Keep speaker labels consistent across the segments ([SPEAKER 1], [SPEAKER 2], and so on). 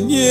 [SPEAKER 1] не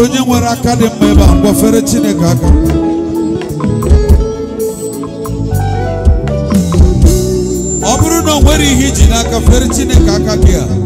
[SPEAKER 1] nwere onye nwere aka dị mma ebe a gwafere Chineke aka ọ bụrụ na o nwere ihe iji n'aka fere Chineke aka gị a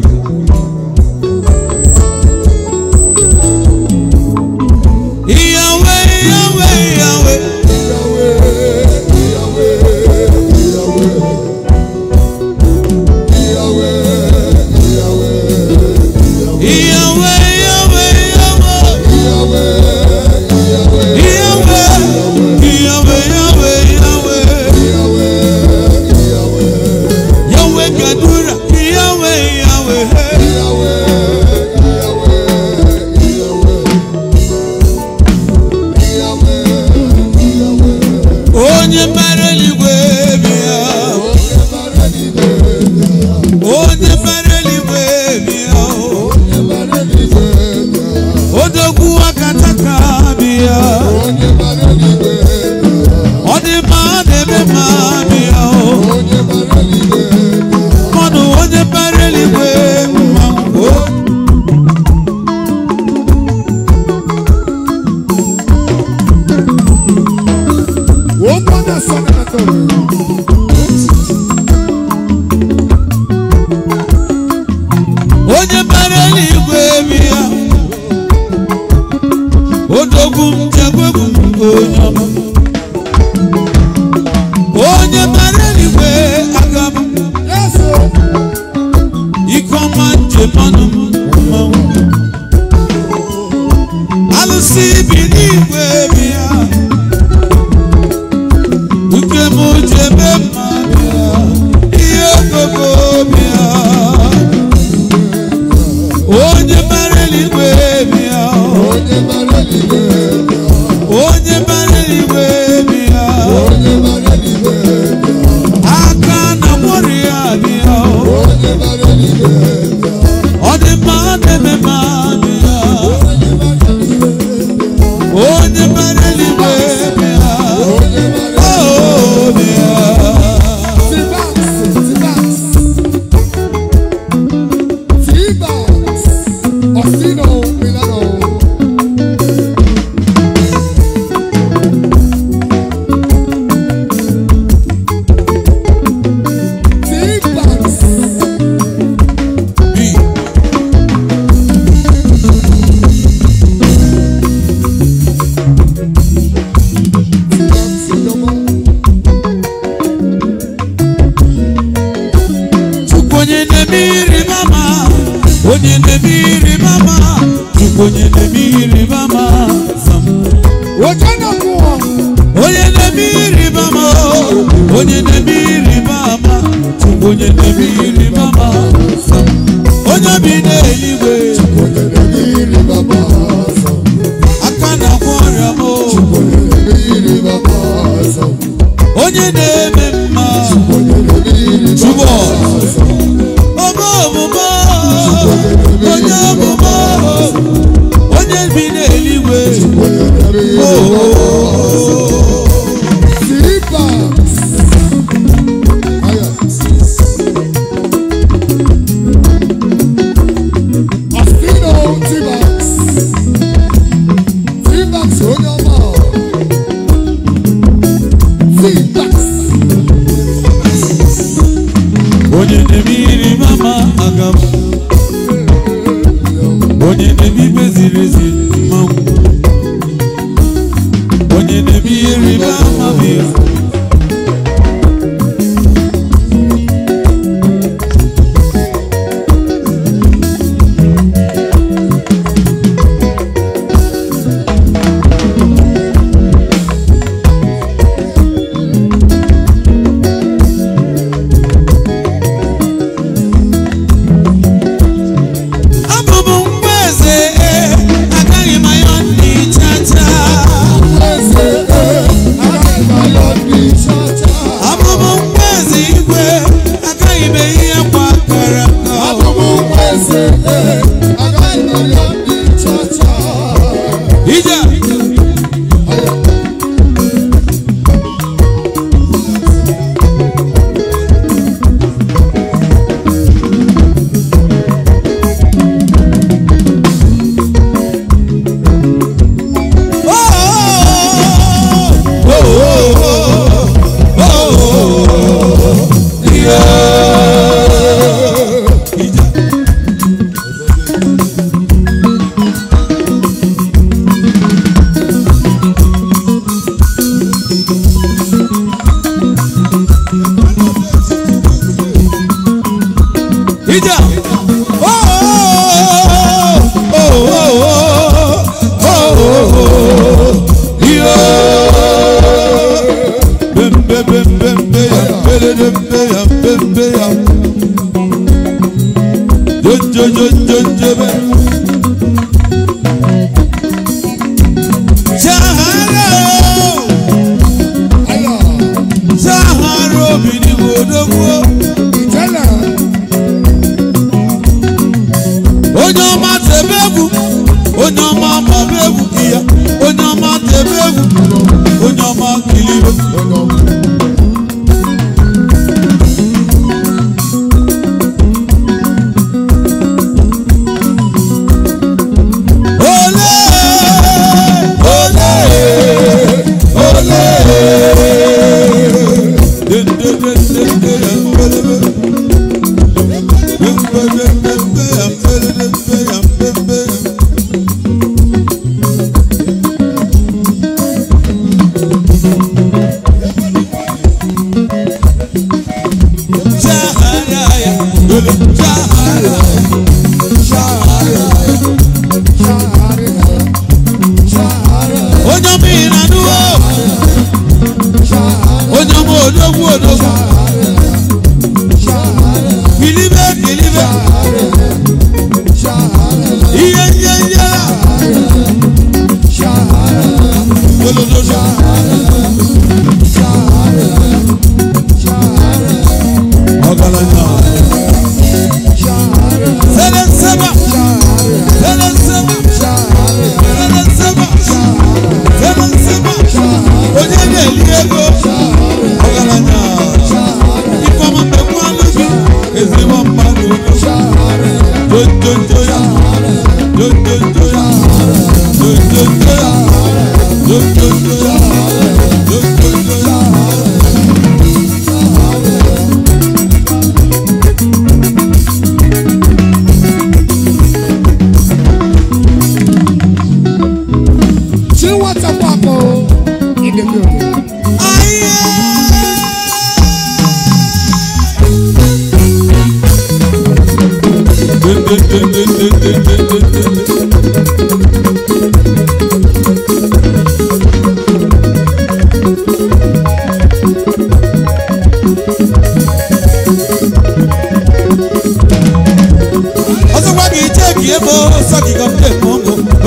[SPEAKER 1] You.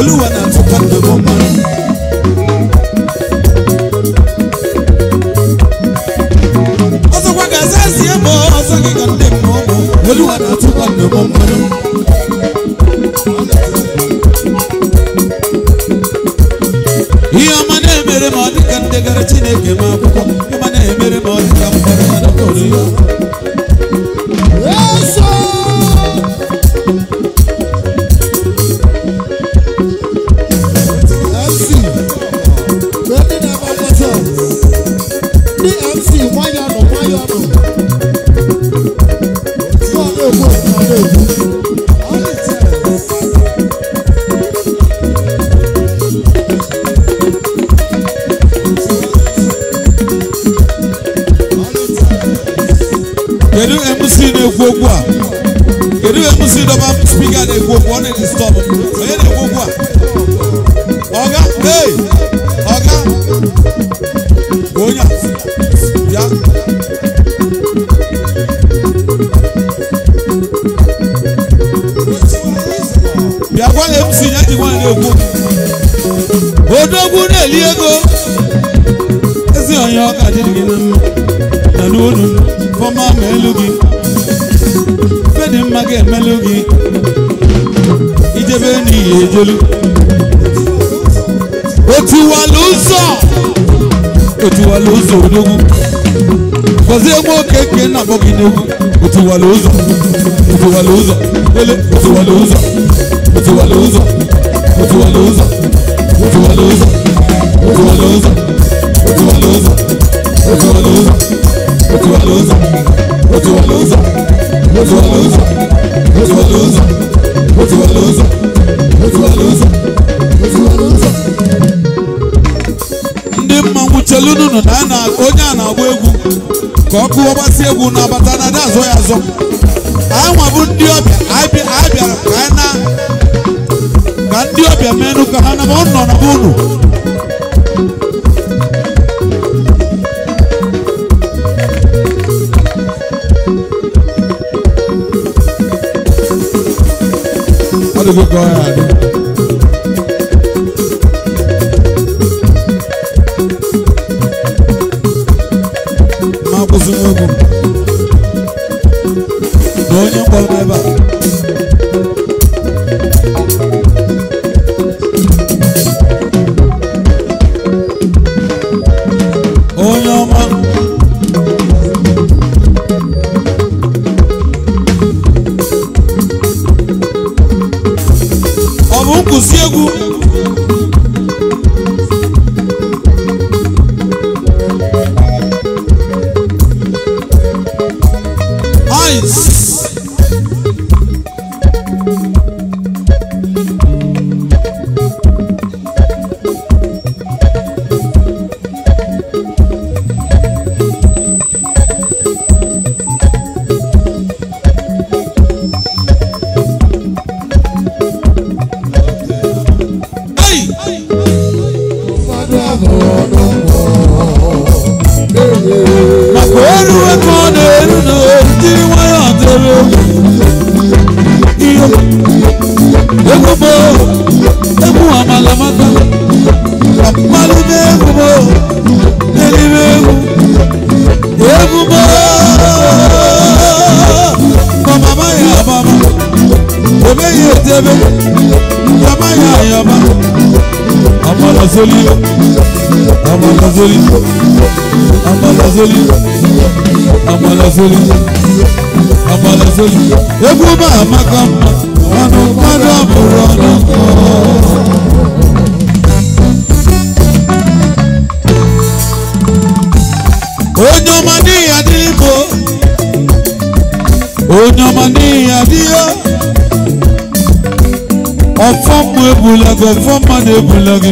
[SPEAKER 1] Oluwa na tupa ndo bomani náà bọ́ọ̀gì ni o ti wà lóòzọ̀ o ti wà lóòzọ̀ délé o ti wà lóòzọ̀ o ndị egwu n'ọbata na ada azụ ya azụ anwa bụ ndị ọbịa a bịara ka na ka ndị ọbịa menụ ka ha naba nọ na be unu Olha o Goiás. egwu ma amaka mma ọnụ mmadụ abụrụ ọnụ nkọ onye ọma n'ihi adịghị bụ onye ọma n'ihi adịghị ọfọ mmụ ebula gị ọfọ mmadụ ebula gị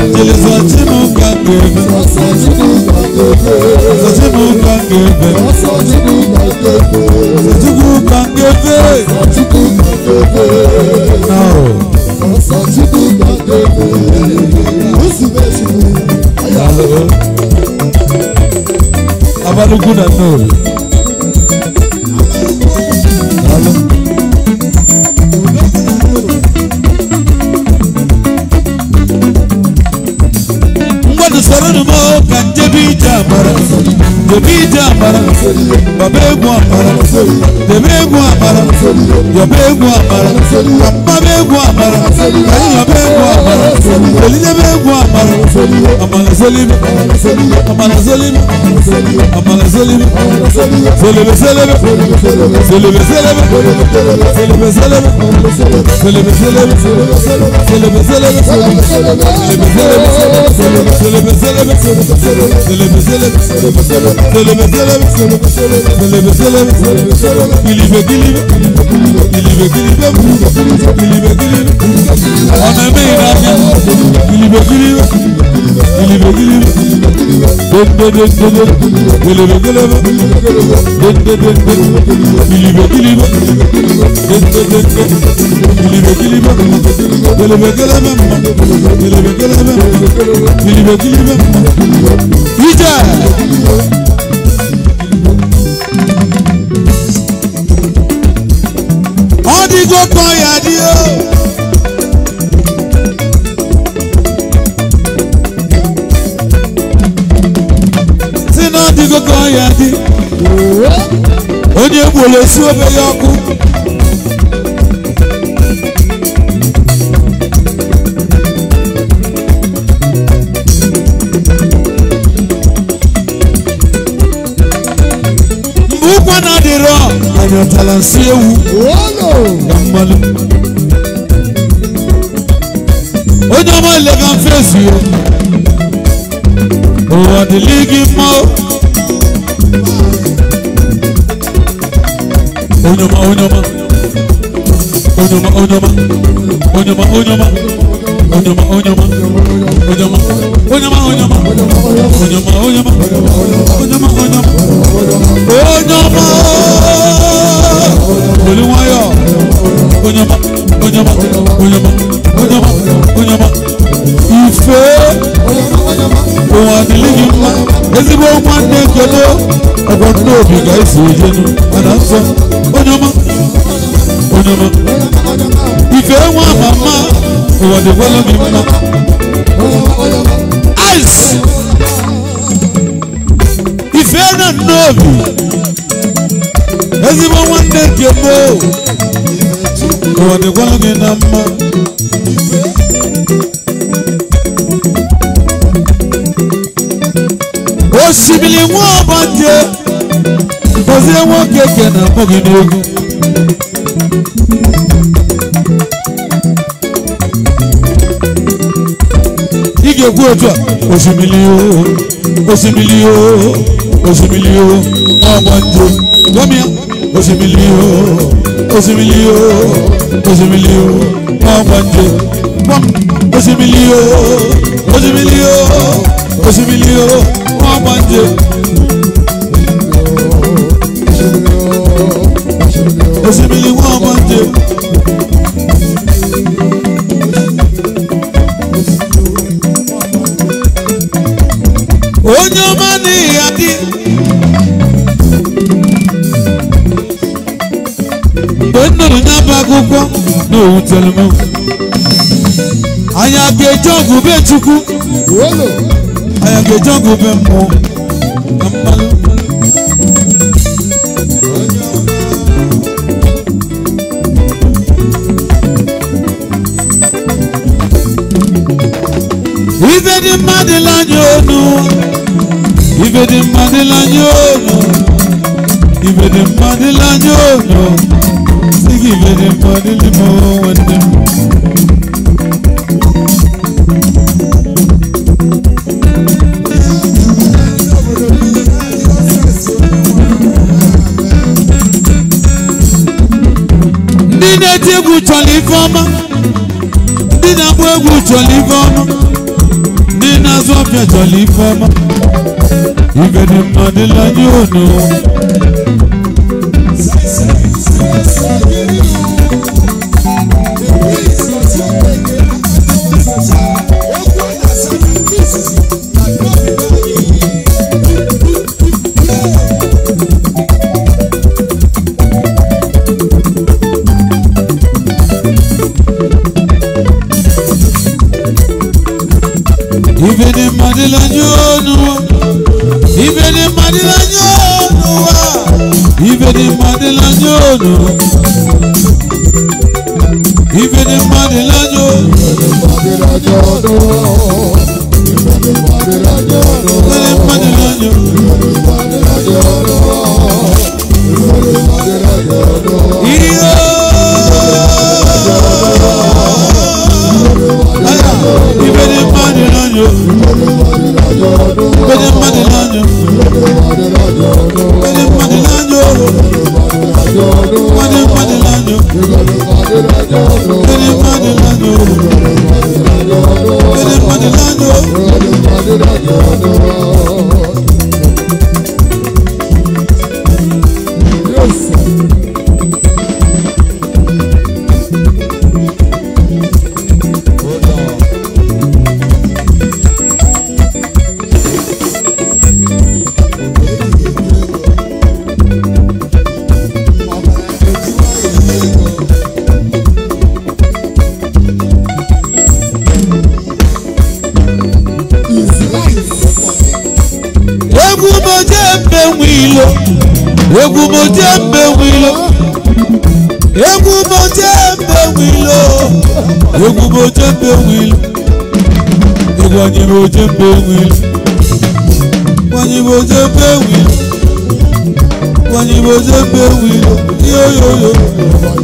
[SPEAKER 1] Elisa tí mo gbà gbèrè. Ọ̀sà tí mo gbà gbèrè. Ọ̀sà tí mo gbà gbèrè. Ọ̀sà tí mo gbà gbèrè. Ọ̀sà tí mo gbà gbèrè. Ọ̀sà tí mo gbà gbèrè. Náà. Ọ̀sà tí mo gbà gbèrè. Oṣù méjì ni àyà rẹ̀. Abalugu na náà. Hello. but I'm so Yemija amara Baba egwu amara Debe egwu amara Yoba egwu amara Mama egwu amara Yoba egwu amara Olidebe egwu amara Amara zolibe Amara zolibe Amara zolibe Zolibe zelebe Zolibe zelebe Zolibe zelebe Zolibe zelebe Zolibe zelebe Zolibe zelebe Zolibe zelebe Zolibe zelebe Zolibe zelebe Zolibe zelebe Söyleme söyleme söyleme söyleme söyleme söyleme söyleme Dilime dilime dilime dilime dilime dilime Anneme inandım Dilime dilime dilime dilime Dönde dönde Dilime dilime Dönde dönde Dilime dilime Dönde dönde Dilime dilime Dilime dilime Dilime dilime Dilime dilime İyice wòle si obe ya ọkụ mgbe ụkwụ na adịrọ anyị ọtala nsị ewu na mmanụ onye ọma ilega mfe ezi ya ụwa dịlị gị mma Oynama oynama Oynama oynama Oynama oynama Oynama oynama Oynama oynama oynama Oynama oynama Oynama oynama Oynama Olúwayọ̀ Oynama oynama oynama Oynama oynama ìfẹ́ òun àdìlẹ́yìn ńlá ezigbo ọmọ adé kẹlẹ́ ọgbọ́n ní òbí gáìsì òye nu padà ń sọ onyọmọ onyọmọ ìfẹ́ wọn màmá òun àdìgbọ́lọ́ mi mọ́ ice ìfẹ́ náà nọ́ọ̀bù ezigbo ọmọ adé kẹlẹ́ òun àdìgbọ́lọ́ mi náà mọ́. osimiri nwa ọbọdị gọzie nwoke ke na mbụ gị n'egwu ị ga-ekwu otu a osimiri o osimiri o osimiri o ọbọdị gọmi ya osimiri o osimiri o osimiri o ọbọdị osimiri o osimiri o òṣìbìlì o wọ́n máa ń jẹ. òṣìbìlì wọ́n máa ń jẹ. onye ọma n'ihi adị mgbe m nụrụ anya ga-eje ọgwụ aya ga-eji ọgụ na ife dị mma dịla onu ife dị mma dịla onu ife mmadụ onu ife egwu chọrọ ife ọma ndị na-agba egwu chọrọ ife ọma ndị na-azụ ọbịa chọrọ ife ọma ibe dị mma dịla madilanye onuwa ibe ni madilanye onuwa ibe ni madilanye onuwa ibe ni madilanye onuwa ibe ni madilanye onuwa. jẹ́ pé wí lọ yóò yóò yóò. Yo yo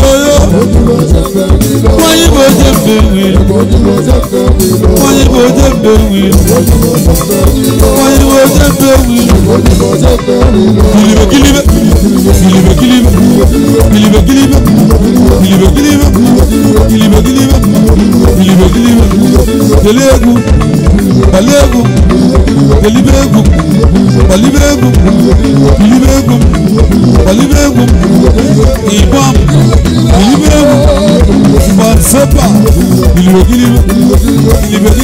[SPEAKER 1] yo yo. Wọ́n yí bó jẹ́ bèwì. Wọ́n yí bó jẹ́ bèwì. Wọ́n yí bó jẹ́ bèwì. Kìlìbè kìlìbè. Kìlìbè kìlìbè. Kìlìbè kìlìbè. Kìlìbè kìlìbè. Kìlìbè kìlìbè. Kìlìbè kìlìbè. Kìlìbè kìlìbè. Kìlìbè kìlìbè. pẹ̀lú egun pẹ̀lú egun pẹ̀lú egun pẹ̀lú egun pẹ̀lú egun ìbọn pẹ̀lú egun ìbọn sẹ́pà ìlìbẹ̀kìlìbẹ̀ ìlìbẹ̀kìlìbẹ̀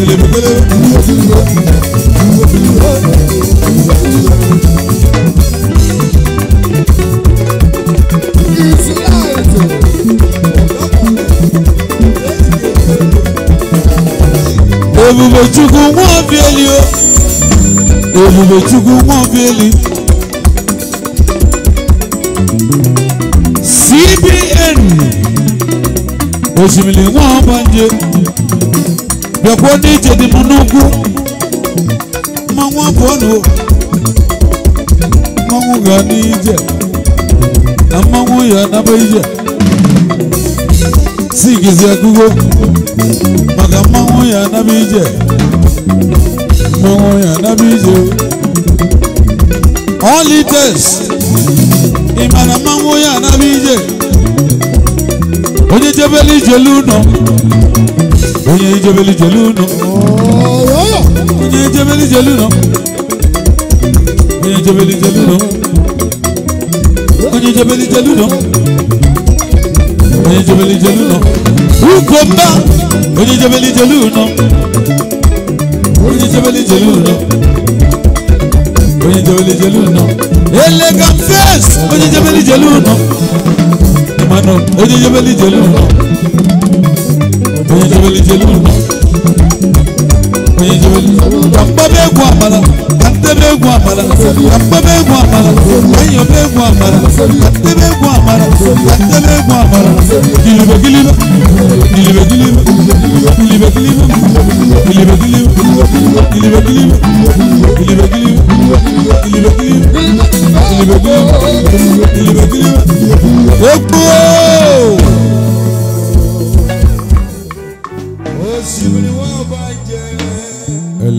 [SPEAKER 1] ìlìbẹ̀kìlìbẹ̀. ebube chukwu nwa obieli o ebube chukwu nwa obieli cbn osimiri nwa ọbanje bịakwa ndị ije dị m n'ugwu ma nwa pụọnụ mmanwụ ga n'ije na mmanwụ ya naba ije sigize kugo maka mmanwụ ya anaba ije mmanwụ ya anaba ije ọlites ịmara mmanwụ ya anaba ije onye jebele ijele ụnọ onye jebele ijele ụnọ onye jebele ijele ụnọ onye jebele ijele ụnọ onye jebele ijele ụnọ onye jebeli jelu nọ ukomba onye jebeli jelu nọ onye jebeli jelu nọ onye jebeli jelu nọ elegant face onye jebeli jelu nọ mana onye jebeli jelu nọ onye jebeli jelu nọ joli akpọba egwu amala atebe egwu amala akpọba egwu amala enyoba egwu amala atebe egwu amala atebe egwu amala gilibe gilibe gilibe gilibe gilibe gilibe gilibe gilibe gilibe gilibe gilibe gilibe gilibe gilibe gilibe gilibe gilibe egwu.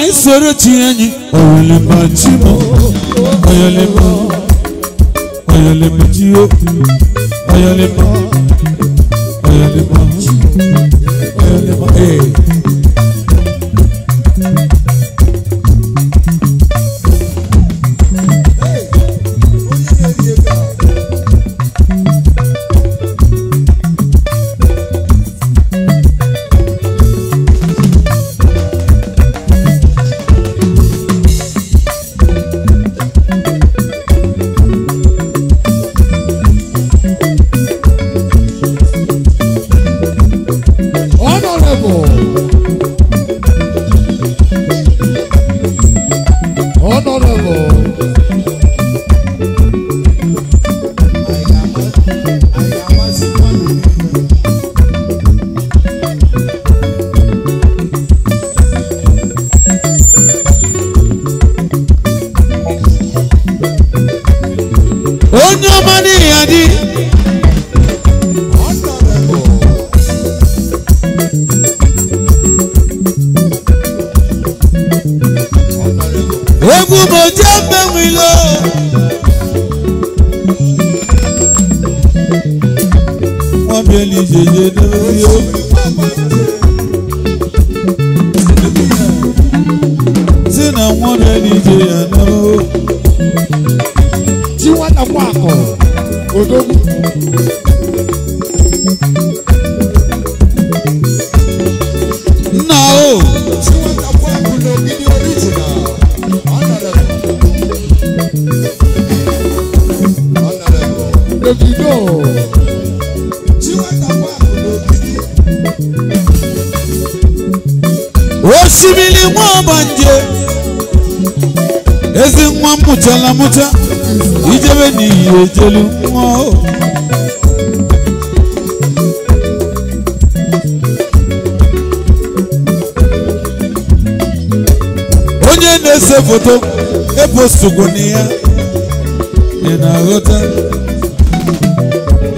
[SPEAKER 1] anyị soro chi enyi oyelemba chi m oyelemba oyelemba ji okwu oyelemba ejelu onye na-ese foto eposogbu na ya ị na-aghọta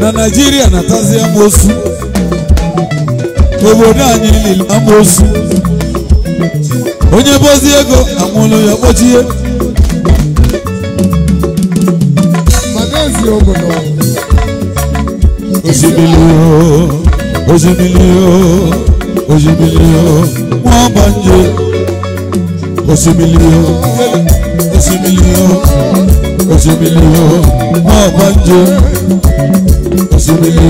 [SPEAKER 1] na naijiria na amosu obodo anyị lili amosu onye bozi ego amụlụ ya kpọchie obodo osimiri osimiri osimiri wọ́n bá ń jẹ osimiri osimiri osimiri wọ́n bá ń jẹ osimiri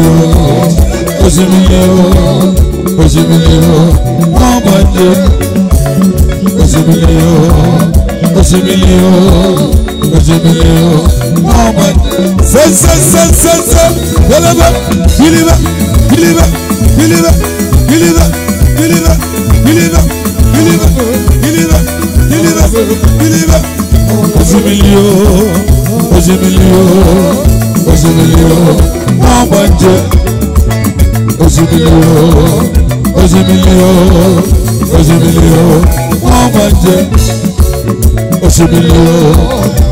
[SPEAKER 1] osimiri osimiri wọ́n bá ń jẹ osimiri osimiri. Sen sen sen sen sen Hele ben Bilime Bilime Bilime Bilime Bilime Bilime Bilime Bilime Bilime Bilime Hoca biliyor Hoca biliyor Hoca biliyor Amancı Hoca biliyor Hoca biliyor Hoca biliyor Amancı Hoca biliyor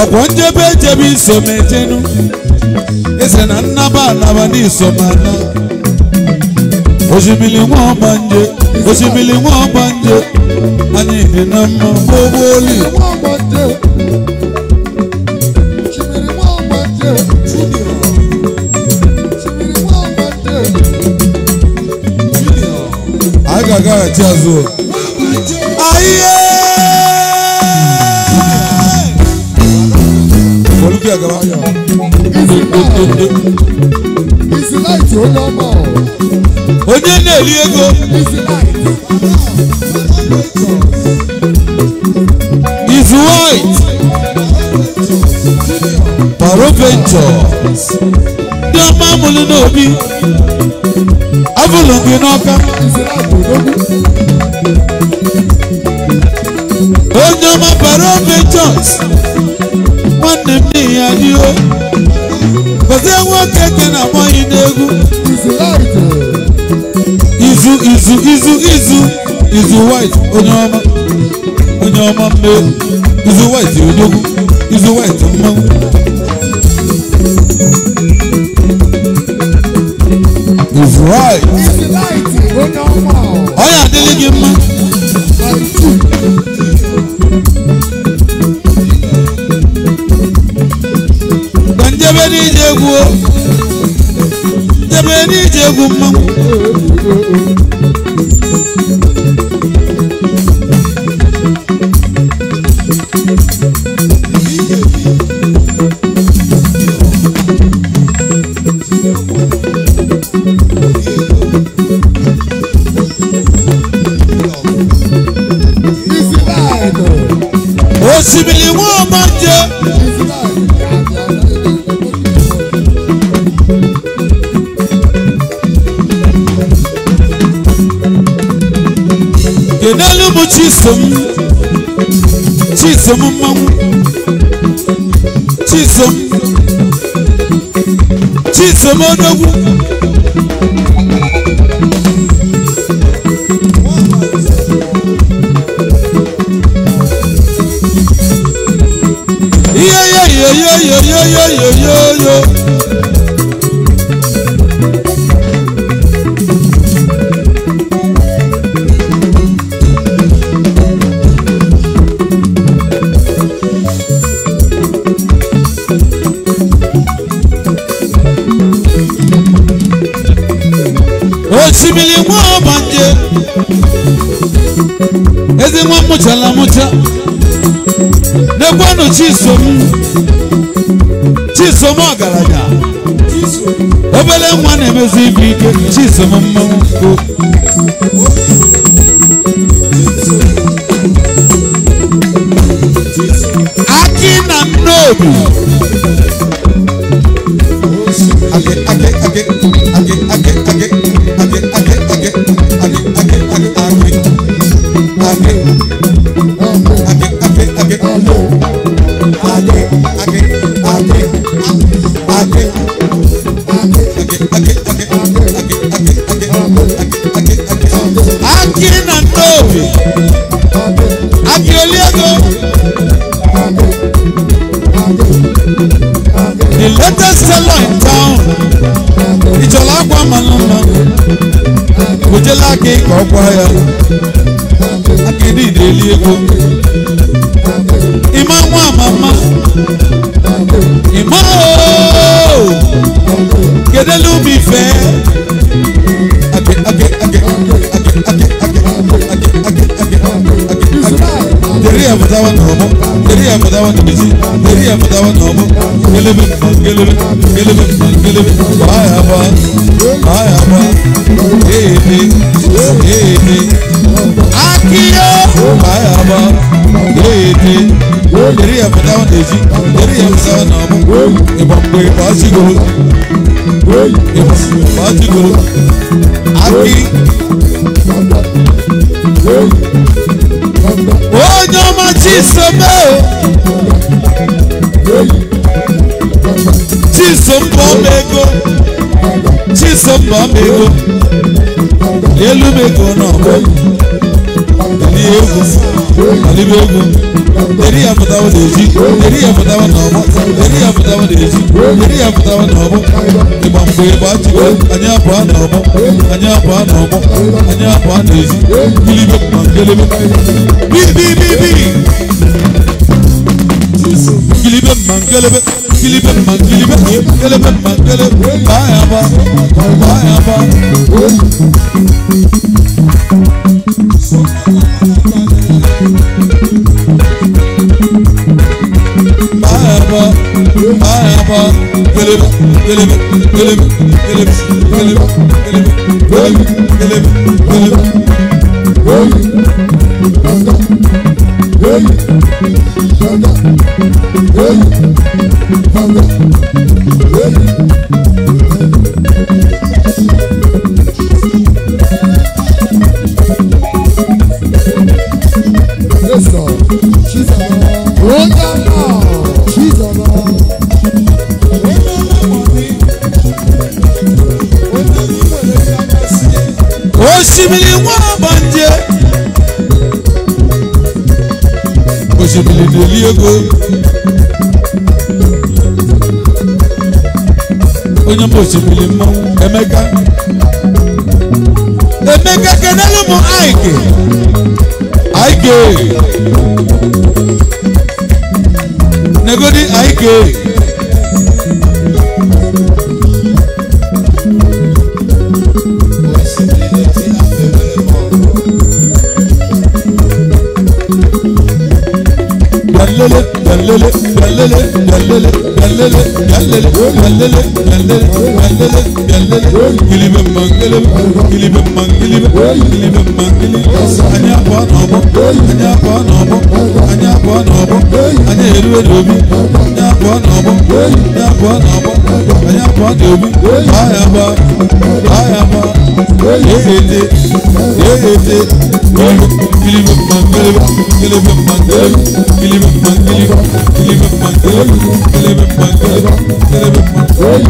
[SPEAKER 1] ọkwa njebe jebe isomejenu ese na nnaba alaba n'isomana osimiri nwa ọgbanje osimiri nwa ọgbanje anyị dị na mma gbogboli a ga-agaghachi azụ bí ẹ̀gẹ́ bá yọ. ó lọ mọ̀. Oní lè rí ego. Ìsì láìtì ó lọ mọ̀. Is white. Paro ventures. Dọ́mọ́ múlẹ̀ náà bí. Avulungi náà ká. Ìsì láìtì ó lọ mọ̀. Ó jẹ́ ọmọ Paro ya n'iwe gozie nwoke ke na akpọghị n'egwu izu izu izu izu izu white onye ọma onye ọma mmeri izu white odogwu izu white mmanwụ izu white onye adịghị gị mma n'ije egwu jebe n'ije egwu mmanwụ Chisom mmanwụ Chisom Chisom odogwu Yo yo yo yo yo yo yo yo yo ezigbo banje ezigbo mụchala mụcha n'ekwenụ chisom chisom ọgaranya obere nwa na-emezi ibu ike chisom mmanwụ aki na nnobi kọ́pọ̀ ayà akéde ìdèlí ego ìmọ̀ wọn àmàmà ìmọ̀ ooo gèdèlú mi fẹ́ ake ake ake ake ake ake ake ake ake deri ya fata wani deri ya fata bisi deri ya fata wani homo gelebe gelebe gelebe. Elim Ayaba Ayaba Ebi Ebi Akiyo Ayaba Ebi Eri ya fada wa deji Eri ya fada wa namu Iba mwe basi golo Iba mwe basi golo Aki Onyo machi sebe Onyo machi sebe chisombom ego chisombom ego elu m ego n'ọgọ deri egwu alibe egwu deri ya pụtawa na-eji deri ya pụtawa na ọgbọ deri ya pụtawa na-eji deri ya pụtawa na ọgbọ ịgba mgbe ịgba achịkwa anyị abụọ na ọgbọ anyị abụọ na ọgbọ anyị be. na-eji ilibe ma ngelebe bibibibi gilibe ma ngelebe Kilibe mangilibe Kilibe mangile Bayaba Bayaba Bayaba Bayaba Kilibe Kilibe Kilibe Kilibe Kilibe Kilibe Kilibe Kilibe Kilibe Kilibe Hey, Sanda. Hey, Sanda. Hey, ògo. onye mbụ osimiri mmọnwụ Emeka Emeka kenelu m Aike Aike negodi Aike Yeah, yeah, yeah.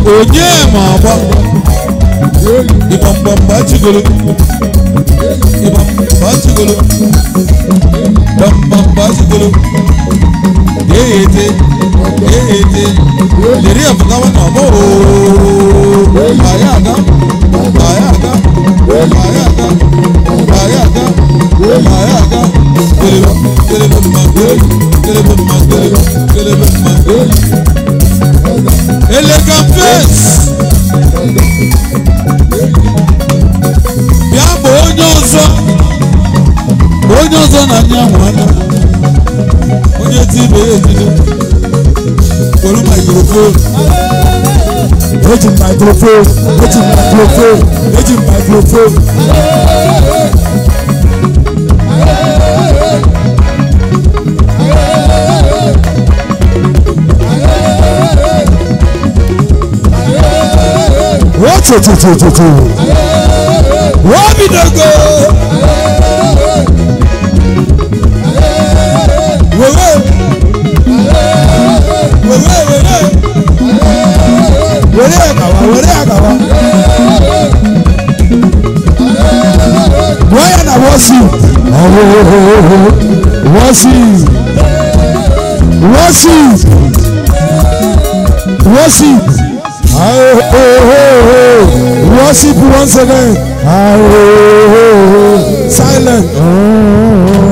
[SPEAKER 1] onye ma agba ịbambamba chigolo ịbambamba chigolo bambamba chigolo ga-eyete ga-eyete lere apụtawa na ọgbọ ooo anyị aga anyị aga anyị aga anyị aga gbé màrá àga kele lọ kele lọ ni màá gbé kele lọ ni màá gbé kele lọ ni màá gbé. elegant face. bịa bụ onye ọzọ onye ọzọ na anyị ahụ anya onye ti ibe ya ejide were microphone eji microphone eji microphone eji microphone wotutututu wobidogo wewe wewe wewe were akawa were akawa wọ́yẹ̀ na wọ́sì wọ́sì wọ́sì wọ́sì. Oh, Worship once again. Oh, oh, oh, oh, Silent. Oh, oh, oh.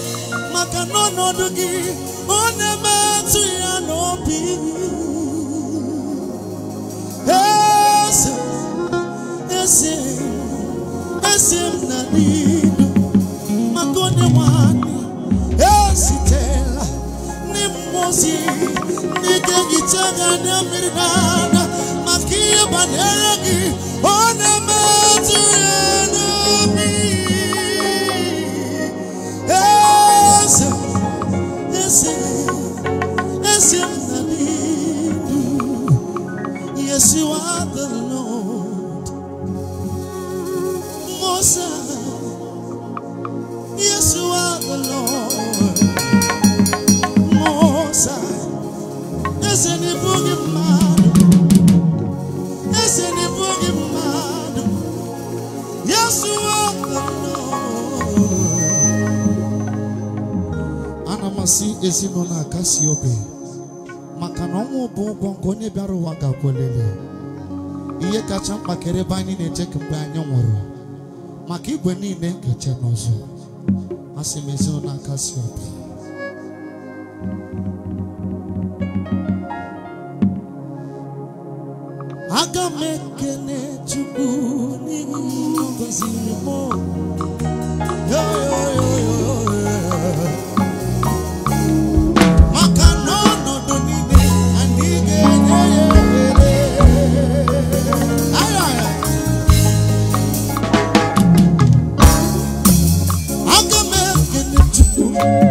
[SPEAKER 1] maka n'ọnọdụ gị ọ na-emetụ ya n'obi eze eze eze m na n'idu maka onye nwanyị ezitela ndị mmụọ ozi ndị na ehicha na anya mmiri n'ala maka ihe banyere gị ọ na-emetụ ya Yes, you are the Lord. Moses. Yes, you are the Lord. Moses. Yes, and the boogie man. Yes, and the boogie man. Yes, you are the
[SPEAKER 2] Lord. Anamasi ezinụlọ akasi obe. na ọnwụ bụ ụgwọ nke onye bịara ụwa ga-akwelele ihe kacha mkpa kere ebe anyị na-eche mgbe anyị nwụrụ maka igwe niile nkeche n'ọzọ asị m ezinụlọ aka si obi
[SPEAKER 1] aga m ekele Chukwu n'ihi ngọziri m you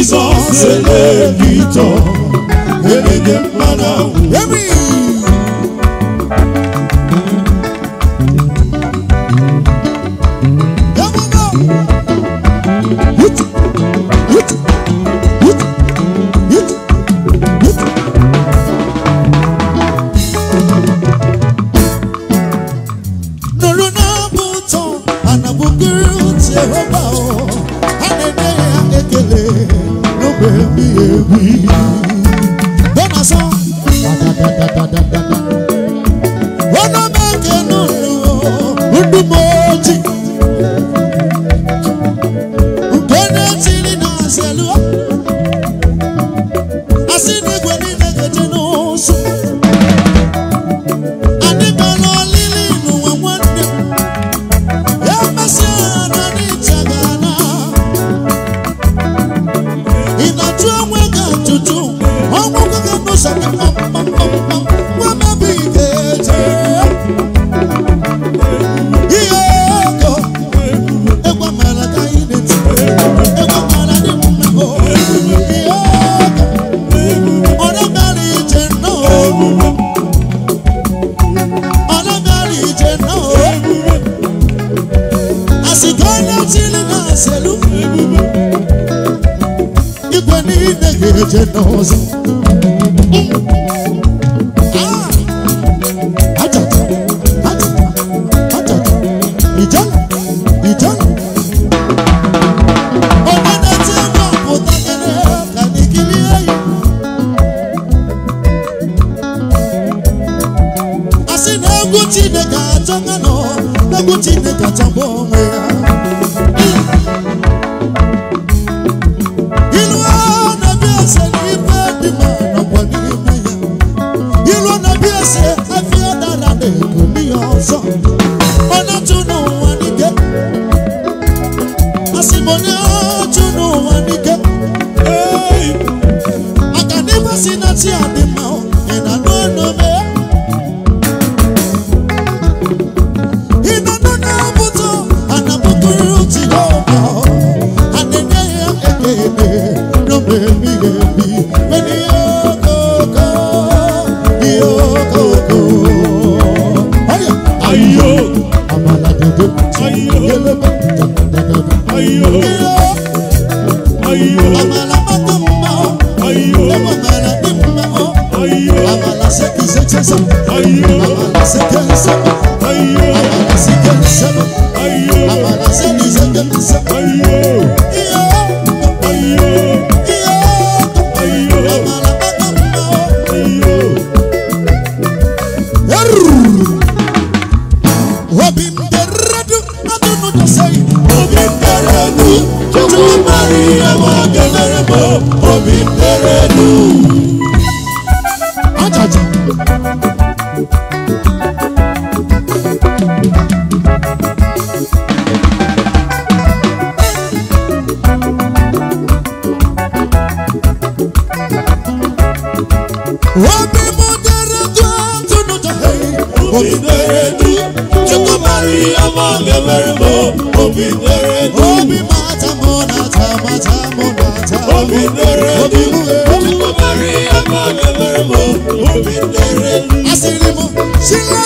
[SPEAKER 1] Jizọs ele victor enye gị mmanụ obi Nere di obi mata mo nata mata mo nata obi Nere di obi mo mari akọ nyere mo obi dere asiri mo sila.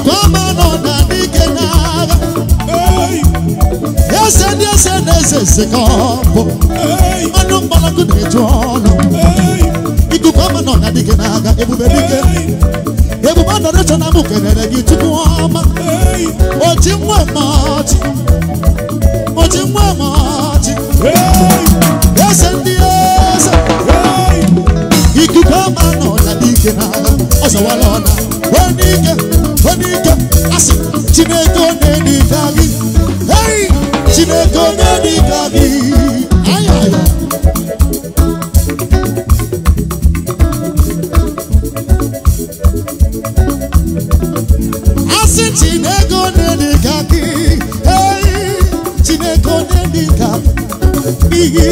[SPEAKER 1] gọvanọ na dike n'agha eze ndị eze na eze eze ka ọ bụ dị mgbalaku na-eju ọnụ iku na dike n'agha ebube dike ebube adọrịcha na m gị tupu ọma oji ma, ọchị oji nwa ọchị dike Chineke ne na-edika gị hey Chineke ne na-edika gị ayaya asị Chineke ọ na-edika gị hey Chineke ọ na-edika gị ihe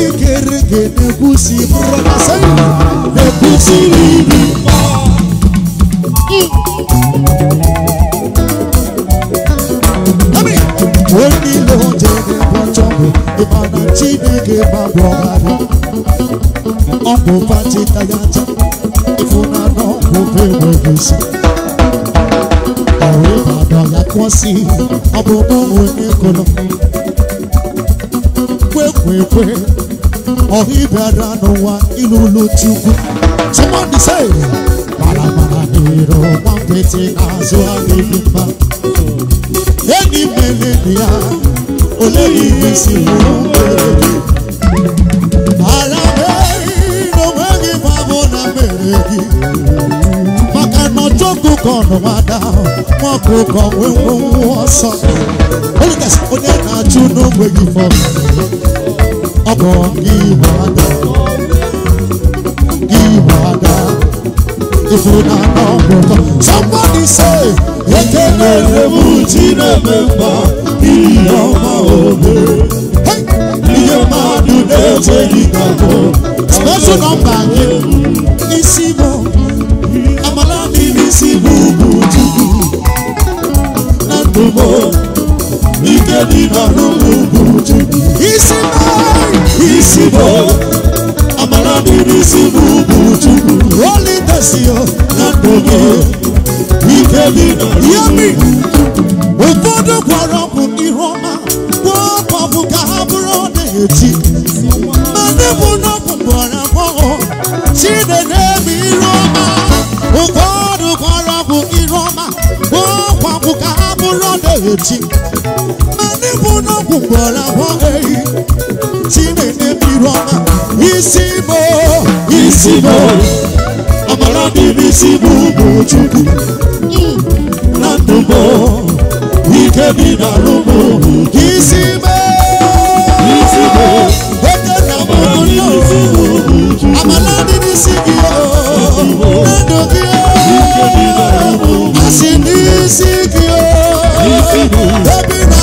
[SPEAKER 1] ne gị na-ekwusi mụrụ na sayị na-ekwusi n'ibi ma bọgharị ọ bụ pachita ya aja ịfụnanọ ọgwụgwụ enweghị isi ọrụ ịbadọ ya kwụsị ọ bụ n'onwe ekolo kwekwekwe ọhịbịara n'ụwa ilulu chukwu somebody say maramara dịrị ọgba nkịtị n'azụ adịghị mma enyi mere ya oleghị isi ụlọ ọjọ́gùn kan ọ̀nà wa dá wọn kò kàn wíwọ́n wọ́n sọ. olùkẹ́sì ó ní ẹ̀ka túnú wẹ̀yìn fọ́ ọkọ̀ ìwádà ìwádà ìfúnná ọ̀gbọ̀tọ̀. somebody say ekele lebu jina memba iye ọma obe iye mmadụ na-eche gị kakọ. special number yẹn isi mọ. ụfọdụ gwara ọkụ ihu ọma gwụọ ọkụ ọkụ ka ha bụrụ na-eti ma ndị bụ n'ọkụ gwara agbọghọ chide na-eme ihu ọma ụfọdụ gwara ọkụ ihu ọma gwụọ ọkụ ọkụ ka ha bụrụ na-eti ibunokwu gbọrọ abụọ ehi chineke biri ọma isi mo isi mo ọmara dị n'isi bụ ụmụ chukwu na ndụ mo ike bi na ụmụ isi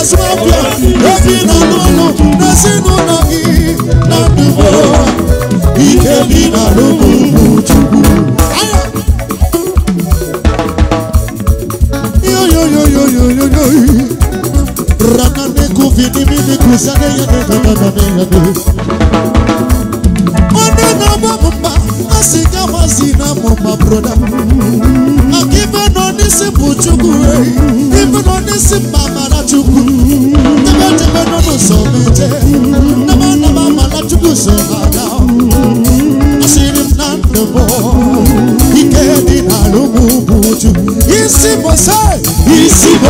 [SPEAKER 1] azụ ọbịa na ndụbo ike bi na broda tebe n'ọnụ so mana na ndụ bụ isi bụ se na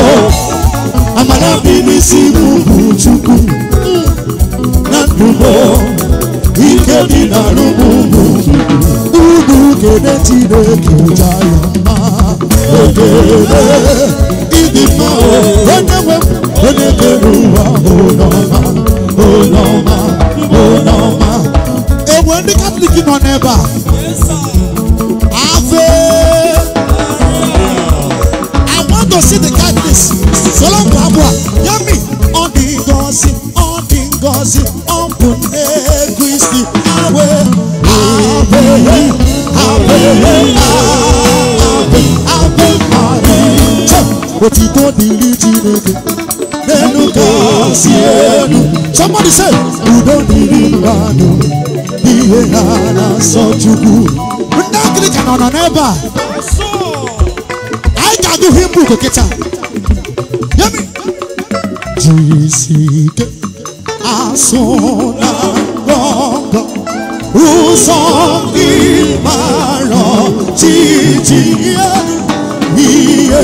[SPEAKER 1] dìbò oníwèé onígbèrú wa olọ́mà olọ́mà olọ́mà. èwo ní kábílìkì nọ n'ebe a. afe. I want to see the Catholics. Solon Kwabua, Yami, Ondingozi, Ondingozi, Ompun Egwisti, Awe, Awe, Awe, Awe. otito dịrị chineke n'elu ka o si elu somebody say udo dịrị mmadụ ihe ha na-asọ chukwu ndị agrika nọ n'ebe a anyị ga-agụ himbu kokịta yemi jisi ike asụ na ngọngọ ụzọ ndị mara titi ihe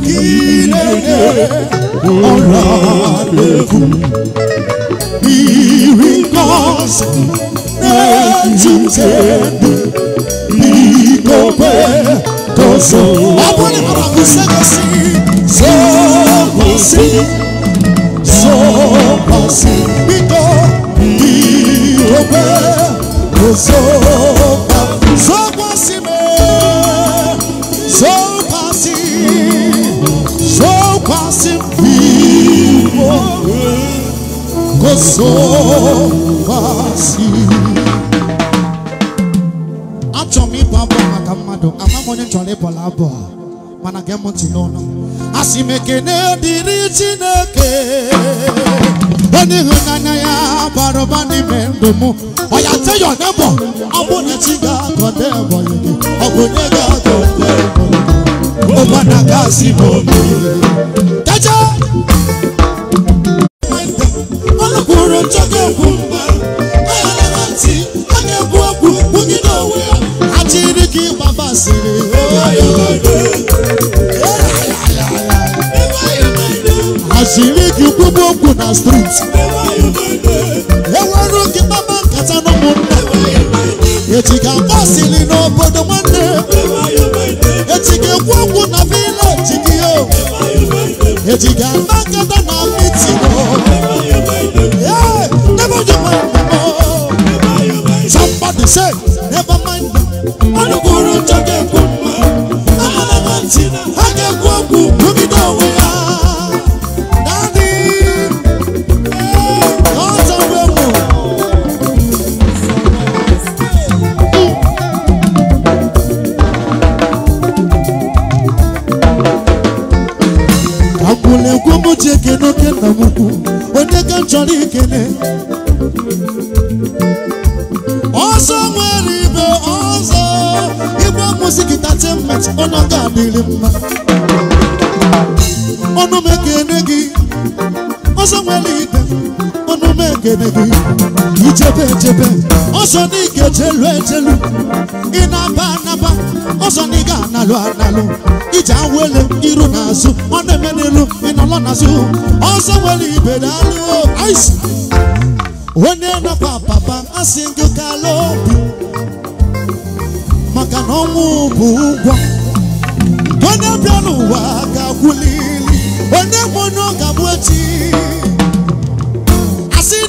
[SPEAKER 1] kí lédè ọ̀rọ̀ àlékún ìrì kọ́sì ẹ̀júṣe ní gbogbo tó sọ. abúlé bàbá kò sẹ́kọ̀ sí sọ́kọ̀ sí sọ́kọ̀ sí gbígbọ́ ìrọ̀gbẹ́ kò sọ́kọ̀. so fácil.
[SPEAKER 2] Atọ́mi bàbá ama
[SPEAKER 1] àmàmọ́ ní ntọ́lé bọ̀lá bọ̀ mana gẹ́mọ̀ tì lọ́nà. Asimeke ne diri Chineke. Oni hunanya ya baroba ni mendomo. Oya teyo nebo. Abo ne chiga konde boyege. Ogo ne ga konde boyege. Oba na kasi bomi. nwere ncha ga mba ọ na-ekwu okwu na onwe ya achịrị ka ịgba basịrị achịrị ka na striti enwere oge kpaba nkata na ụmụnna echi ga-agba n'obodo nwanne echi ekwu okwu na vileji gị na say never mind go ga-eme gị ichebe echebe ọsọ na ị ga-ejelu ejelu ị na-aba anaba ọsọ na ị ga-analụ analụ ije awele iru na azụ ọ na-eme n'elu ị ịnọlọ n'azụ ọsọ nwere ibe daalụ onye nọkwa papa asị gị kala obi maka na ọnwụ bụ ụgwọ onye bịa n'ụwa ga-agwụlili onye nwụnye ọ ga abụ echi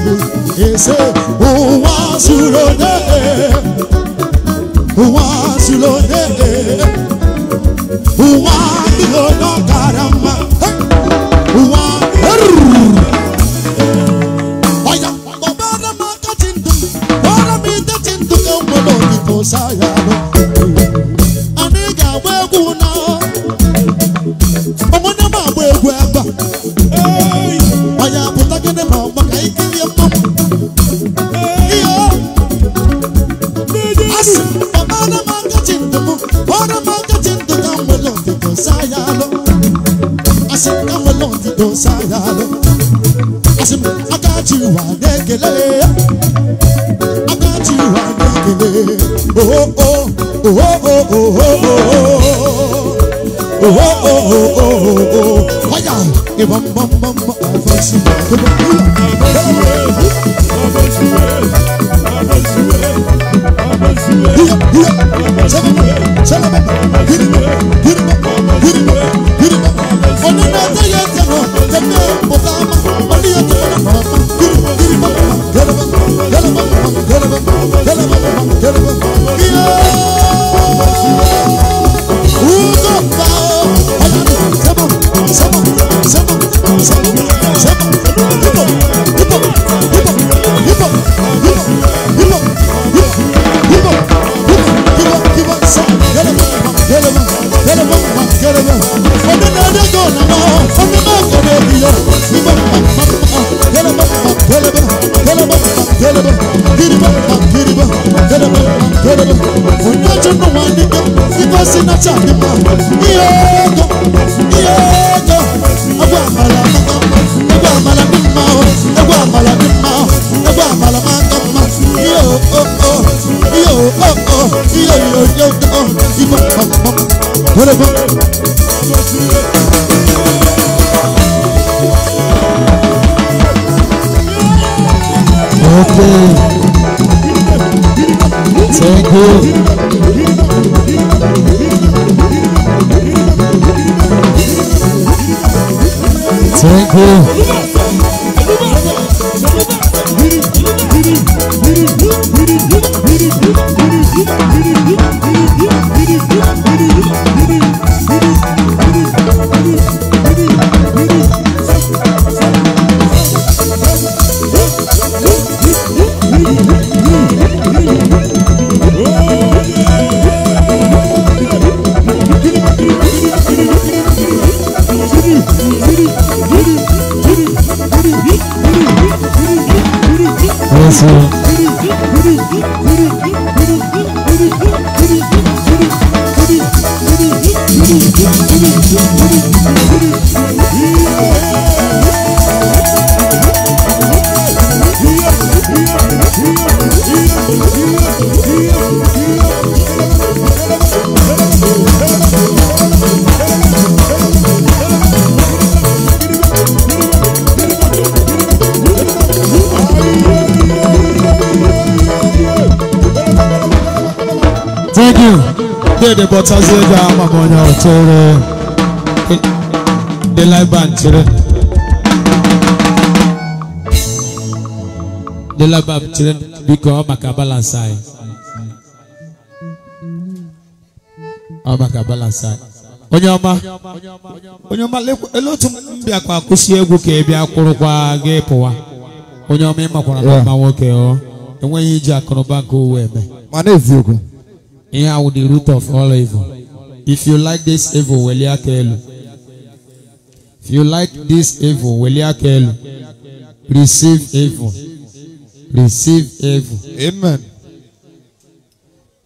[SPEAKER 1] tudo. Esse Oh.
[SPEAKER 2] dede bọtazie ego ahụ maka onye ọtụrụ dị laiban chere dị laiban chere biko ọ maka balansị anyị ọ maka balansị anyị onye ọma onye ọma ele otu mbịa kwa kwụsị egwu ka ebịa kwụrụkwa gị pụwa onye ọma ịmakwara na mma nwoke ọ oh. enweghị iji akụnụba nke owu eme mana eziokwu Here are the root of all evil. If you like this evil, welia kelu. If you like this evil, welia kelu. Receive evil. Receive evil. Amen.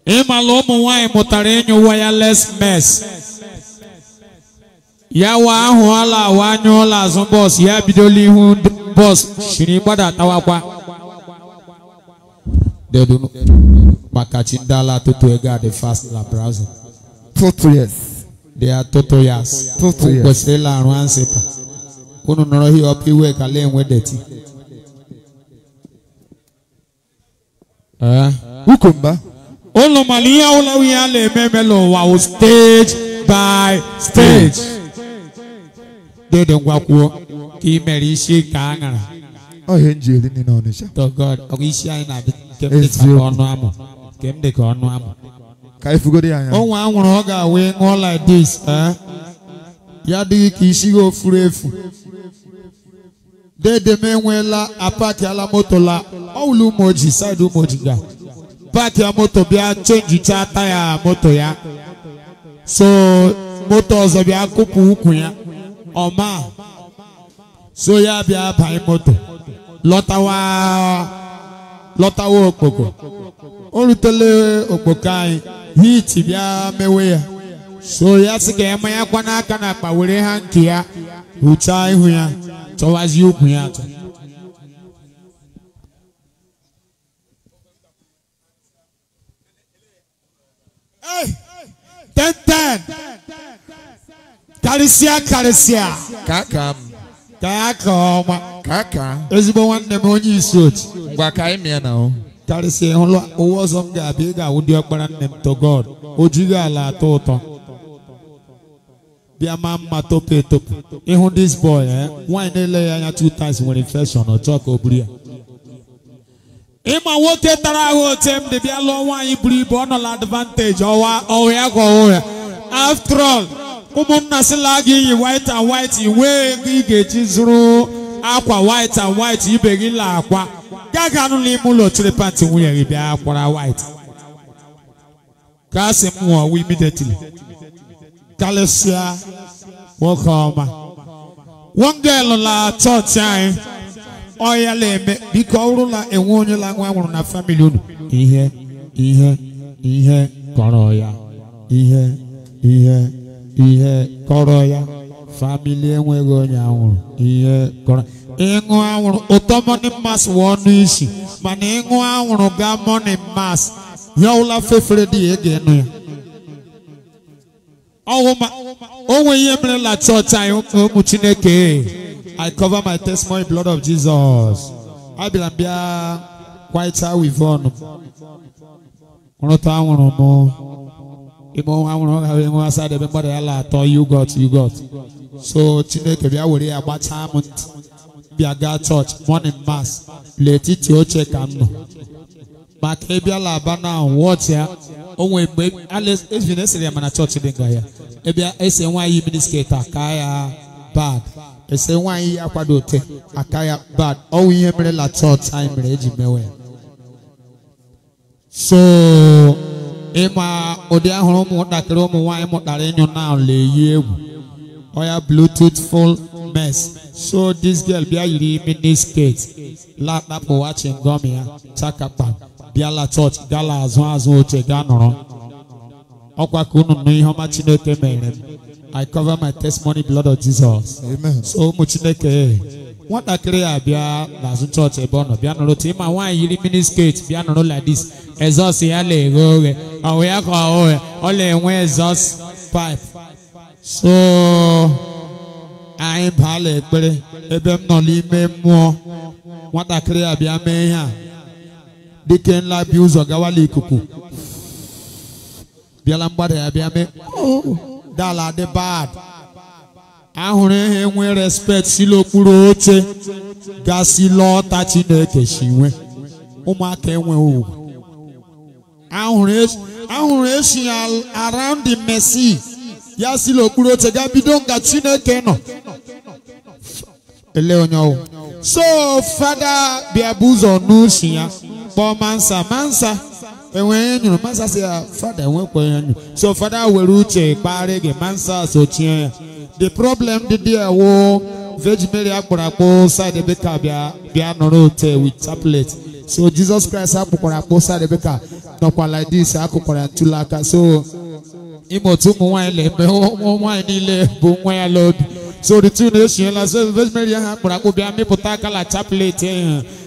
[SPEAKER 2] Ema lo mu wai wireless mess. Ya wa ahu ala wa nyu ala zon boss ya bidoli hu boss shiri tawakwa dedu makachi ndị ala tutu ego the fast la brazil tutu yes they are tutu yes tutu yes kwesịrịla arụ ansịpa unu nọrọ hi ọpụ iwe kala enwe deti ukomba ụlọ mara ihe ụlọ ihe a na-eme emela ụwa wụ stage by stage dedu ngwa kwuo ka ị mere isi ka a ṅara ọhịa njiri niile ọnịcha to god ọ bụ isi anyị na-abịa kem dị ka ọnụ amụ kem dị ka ọnụ amụ ka ifugodi anya onwe anwụrụ ọ ga-awụ ṅụọ like this ya adịghị ka isi gị ofuru efu dedem enweela apakiala moto la ọwụlụ umoji saịdị umoji ga paaki ya moto bịa chenjicha taya moto ya so moto ọzọ bịa kụpụ ụkwụ ya ọma so ya bịa banye moto lọtawa lọtawo okpoko o rutele okpoko anyị hiiti bịa mewe ya so ya sị ka emanya kwa n'aka na akpa were ha nke ya hụchaa ihu ya chọwazie ukwu ya atọ ten ten karịsịa karịsịa kakam ka aka ọma ka aka ezigbo nwanne m onye isi oti ngwa ka anyị mịa na karịsịa hụlụ ụwa ọzọ m ga-abịa ị ga-awụ dị ọkpara nne m to God o ala atọ ụtọ bịa maa mma topu etopu ịhụ dis boy eh nwaanyị na-ele ya anya two times nwere infection ọ ka o buru ya ịma nwoke tara ahụ ote m dị bịa lụọ nwaanyị buru ibu ọ nọ na advantage ọwa ọhịa gwa ya. after all ụmụnna sịla gị yi white and white iwe ego ị ga-eji zụrụ akwa white and white ibe gị la akwa anụ n'ime ụlọ chiri pati nwunye gị bịa akwara white ka a sị m nwụọ imidetili. karịsịa nwoke ọma wongel la chọọchị anyị ọya na-eme biko ọ bụrụ na enwe onye la nwa nwụrụ na famili unu ihe ihe ihe kọrọ ya ihe ihe ihe kọrọ ya famili enweghị onye anwụrụ ihe kọrọ ịṅụ anwụrụ ụtọ mọni mas wụ ọnụ isi mana ịṅụ anwụrụ gaa mọni mas ya ụla fefere dị ya e ga ịnụ ya onwe ihe merela chọọchị anyị ụmụ chineke I cover my testimony blood of Jesus abịara bịa kwaịta wivon rụta anwụrụ m ime ọnwa nwụrụ ọ ga-ahụ enwe asa debe mmadụ ya la atọ yugot yugot so chineke bịa were ya gbachaa m ntị bịa gaa chọọchị morning mass n'etiti oche ka m nọ maka ịbịala aba na wọchị ya onwe mgbe ezina esiri ya mana chọọchị dị nga ya ịbịa ese nwaanyị minisketi aka ya ese nwaanyị ya kwado ote aka ya bad ihe mere la chọọchị anyị mere eji mewe ya so ịma ụdị ahụrụ ụmụntakịrị ụmụ nwaanyị mụtara ịnyụ na na-eyi egwu oya bluetooth full mess so this girl bịa yiri mini skirt lakpapụ wachingom ya chakapa bịala chọọchị gala azụ azụ oche gaa nọrọ ọkwa ka unu nụ ihe ọma chineke mere m i cover my testimony blood of jesus amen so ụmụ chineke nwatakịrị a bịa n'azụ chọọchị ebe ọ nọ bịa nụrụ tima nwaanyị yiri miniskirt bịa nụrụ ladis ezọs ya na-eghe oghe ọwụ ya ka ọhụ ya ọ na-enwe exhaust pipe so anyị baala ekpere ebe m nọ n'ime mmụọ nwatakịrị a bịa mee ihe a dike nla bịa ụzọ gawala ikuku bịala mgbada ya bịa mee dala dị bad ahụrụ enwe respect si n'okpuru oche gasị lọta chineke si nwe ụmụaka enwe ugwu ahụrụ esi around the mercy ya si n'okpuru oche ga bido nga chineke nọ ele onye ọwụ so fada biabuzo n'usi ya kpọọ mansa mansa enwe nyuru mansa si ya fada enwe kwa nyu so fada were uche kpari gị mansa so chie ya the problem dị dị ewu veg mary akpọrọ akpọ side beka bịa bịa nọrọ ote with tablet so jesus christ akpọkwara akpọ side beka nọkwa like this akụkwara ntụlaka so ime otu ụmụ nwaanyị na-eme ụmụ nwaanyị niile bụ nwa ya lọdụ so the two nation la se vesmeri ha kura ko bia mi puta kala chaplet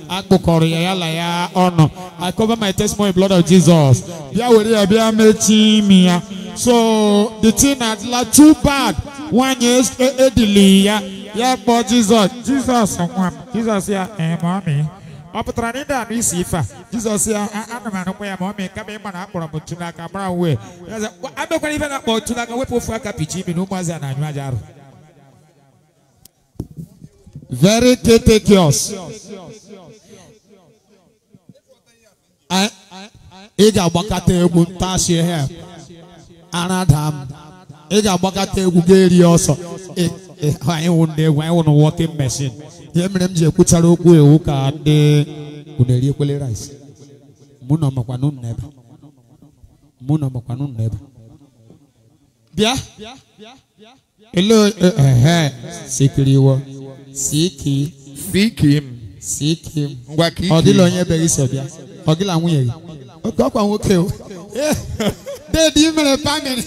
[SPEAKER 2] akpo kọrọ ya yala ya ọnụ i cover my testimony blood of jesus bịa were ya bịa mechi imi ya so the thing na la too bad nwanyị edili eh, eh, ya ya kpọọ jizọs Jesus. nwa m jizọs ya ịma eh, mi ọ pụtara na ndị anụ isi ife a jizọs ya ana m anụkwa ya ma ọ mee kama ịma na akpọrọ m ntu n'aka mara uwe amekwara ife na-akpọ ntu n'aka wepụ ofu aka pichi imi na ụmụazị a na-anyụ aja arụ very critical ị eh, eh, eh, ga-agbakọta egwu ntachi ihe a. Anadam. m ị ga-agbakọta egwu ga-eri ọsọ anyị wụ ndị egwu anyị wụ na walking machine ihe mere m ji ekwuchara okwu ewu ka ndị unu eri ekwele rice mụ na makwanụ nna ebe mụ na makwanụ nna ebe bịa ele ehe sikiri iwe Seek him. Seek him. Seek him. Ngwa ka ike. Ọ dịla onye bere isi ọbịa. Ọ gịla nwunye gị. Oke ọkwa nwoke o. Deedi mere pamịrị.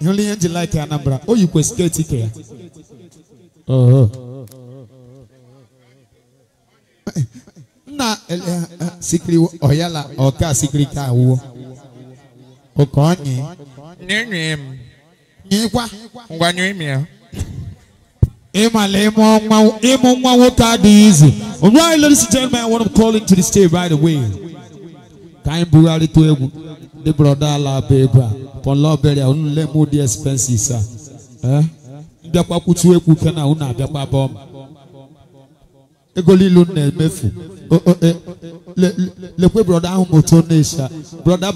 [SPEAKER 2] Ịhụla ihe nji laịka Anambra. O yikwa sketi ke ya. Nna sikiri ọyala ọka sikiri ka awụwo. Oke ọnyị. Nye nye m. Nyekwa. Ngwa nye m ya. All right, ladies and gentlemen, I want to call into the stage right away. Time Burari to Ebu, the brother La Beba, for Lord Berry, I won't let more expenses, sir. Eh? Ndakwa kutu eku kana bom. Ego lilu na mefu. E, le le brother n'isha. Brother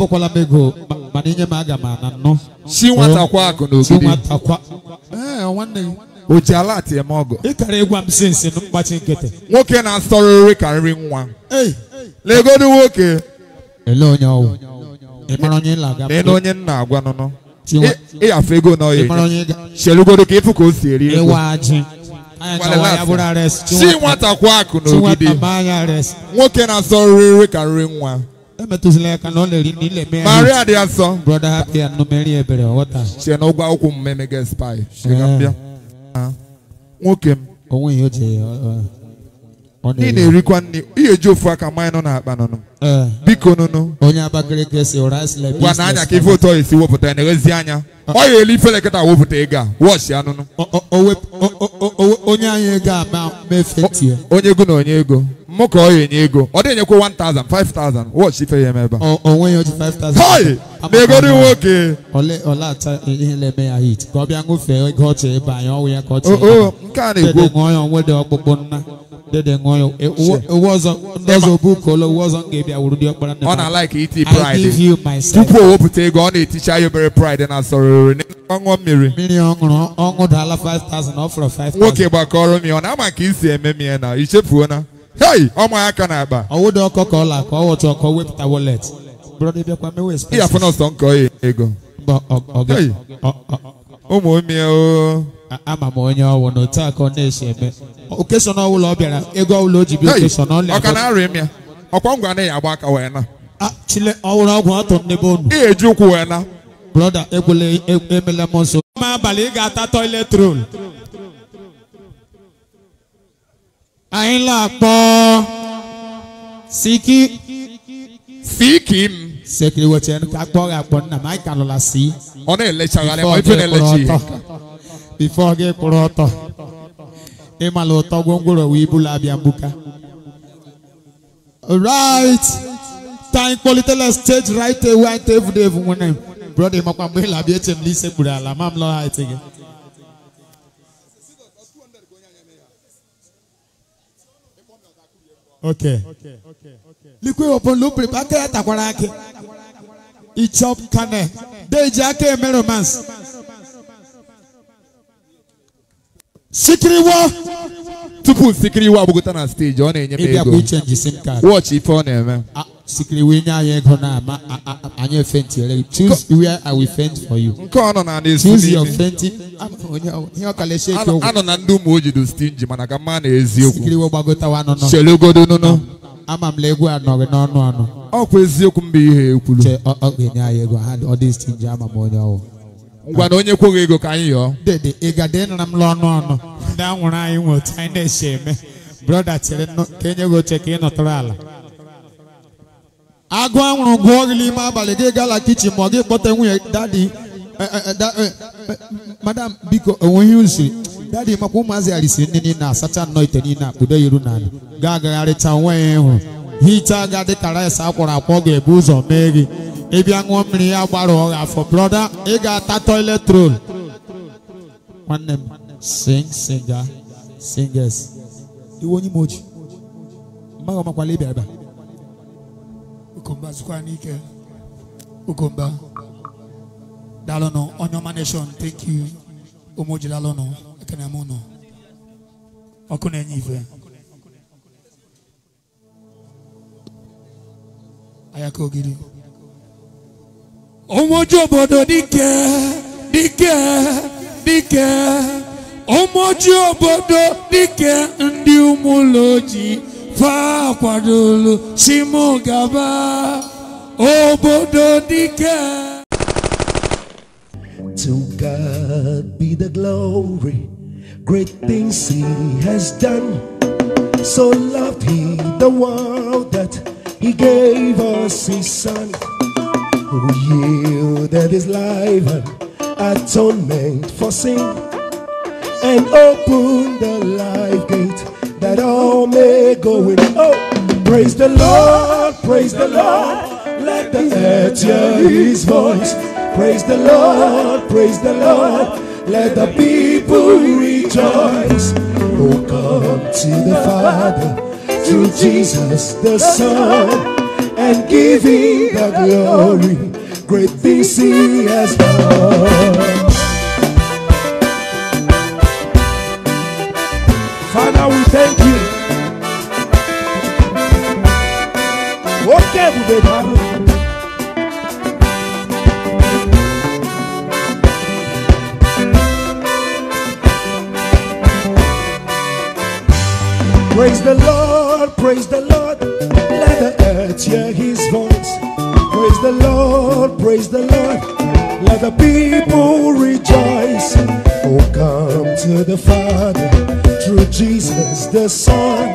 [SPEAKER 2] mana aga m Si eh? kwa Si nwanne o ji ala ati eme ọgụ ịkara ịgwa m si nsi mkpachi nkịtị nwoke na-asọrọ nri ka nri nwa legodu nwoke ele onye ọwụ ịmara onye nna na ele onye nna agwa nụnụ ịyafe ego na ọya chelugodo ka ịfụ ka o si eri ego si nwata kwa akụ n'ogidi nwoke na-asọrọ nri ka nri nwa emetụzila aka na ọ na-eri na ile mee maria dị asọ brọda hapịa numeri ebere ọghọta sie na ụgwọ akwụkwọ mmemme gị spai bịa 啊，我给，给我们有钱。ị na-erikwa nri ihe eji ofu aka mmanya nọ n'akpa nụnụ biko nụnụ onye Abakaliki si ụra sile na anya ka ife ụtọ esi wepụta ya na-eghezi anya ọ ya elu ifele kịta wepụta ego a wọchi anụnụ onye anyị ego a ma mefetie onye ego na onye ego mụ ka ọ ya enye ego ọ dịghị enyekwa 1000 5000 ife ya emeba. oji 5000 hoi na nwoke ihe na-eme ya hit ka ọ bịa ego ọchị ebe anyị ya ọ dede ngoyo it, it wasn't ndozo buko lo wasn't gave ya urudi okpara na ona like it e pride i give you myself tupu owo pute go ona e teacher you very pride na sororo ni onwo mmiri mmiri onwuru onwu dala 5000 offer 5000 nwoke gbakọrọ mi ona ama ka isi eme mi na ichefuo na hey ọmọ aka na akpa ọwụda ọkọ ka ọla ka ọwọtụ ọkọ wepụta wallet brọda bịakwa mewe spes ihe afọ nọsọ nkọ ego mba ọgọ ụmụmie o ama m onye ọwụ na otu aka ọ na-esi eme okesona ọbụla ọ bịara ego ọbụla o ji bịa okesona ọ na-aka na-arịa m ya ọkwa ngwa anaghị agba aka wee na chile ọwụrụ ọgwụ atọ n'ebe unu Ihe eji ụkwụ wee na brọda ekwela e, emela m nso ma abalị ị ga-ata toilet roll anyị la akpọ siki siki m sekiri wote nu kagbɔre akpɔ nna maa ika lɔla si. ɔne ele tsa ya lɛ ife ne ele tsi. bifɔ ge kplɔ tɔ ema lɔ tɔ gongoro wi ibu la abiambuka. right time quality stage right away ante evu de evu ŋunɛ brɔdi mɔkpa mbe la bi etsem lise gbura la mam lɔ ha etsege. ok. okay. okay.
[SPEAKER 1] okay. likwe wɔpɔn lo pere pa kɛra takwara
[SPEAKER 2] ake. Okay ichop kane deji ake eme romance sikiriwo tupu sikiriwo abụgụta na steji ọ na-enye m ego wọchị ife ọ na-eme sikiriwo enye anyị ego na ama anyị efenti ere choose where i will fend for you nke ọ nọ na ndị choose your fenti ihe ọkala esheke okwu anọ na ndị ụmụ ojido stinji mana ka mma na eziokwu sikiriwo gbagọtawa nọ nọ chelogodo nọ nọ ama m na egwu anọghị n'ọnụ anụ ọkwa eziokwu mba ihe ekwuru ọ anyị ego ha ọ dị sti nji ama m onye ọwụ ngwa na onye kwoghị ego ka anyị yọọ dede ị gade nra m n'ọnụ ọnụ ndị anwụrụ anyị nwe otu anyị na eche eme brọda chere ka enye gị oche ka ị nọtụrụ ala agụ anwụrụ gụọ gị n'ime abalị gị gala kichin ma ọ gị kpọta nwunye dadi eh, eh, eh, madam biko onweghị usiri dadi makwa ụmụazị arịsiri ndị niile asacha nnọọ ite niile akpụdo iru n'ala ga-agagharịcha onwe ya ịhụ hichaa ga dị ka rice akwọrọ akwọ ga-ebu ụzọ mee gị ịbịa ṅụọ mmiri ya gbara ọgha afọ brọda ị ga-ata toilet roll nwanne m sing singa singers iwe onye imoji mmadụ ọmakwala ịbịa ebe ukomba zụkwa n'ike ukomba dalụnụ onye ọma nation thank you ụmụ jilalụnụ ekene m ọkụ na-enye ife ayako ògiri.
[SPEAKER 1] ọmọ ojú òbòdò níkẹ́ níkẹ́ níkẹ́ ọmọ ojú òbòdò ndị ụmụ ụlọ ojii fa akwadolu simu gaba obodo níkẹ́. To God be the glory, great things He has done. So loved He the world he gave us His Son, who yielded His life and atonement for sin, and opened the life gate that all may go in. Oh, praise the Lord, praise the Lord, let the earth hear His voice. Praise the Lord, praise the Lord, let the people rejoice. Oh, come to the Father to Jesus the Son and give him the glory. Great things he has done. Father, we thank you. Okay, baby. Praise the Lord praise the Lord. Let the earth hear his voice. Praise the Lord, praise the Lord. Let the people rejoice. Oh, come to the Father through Jesus the Son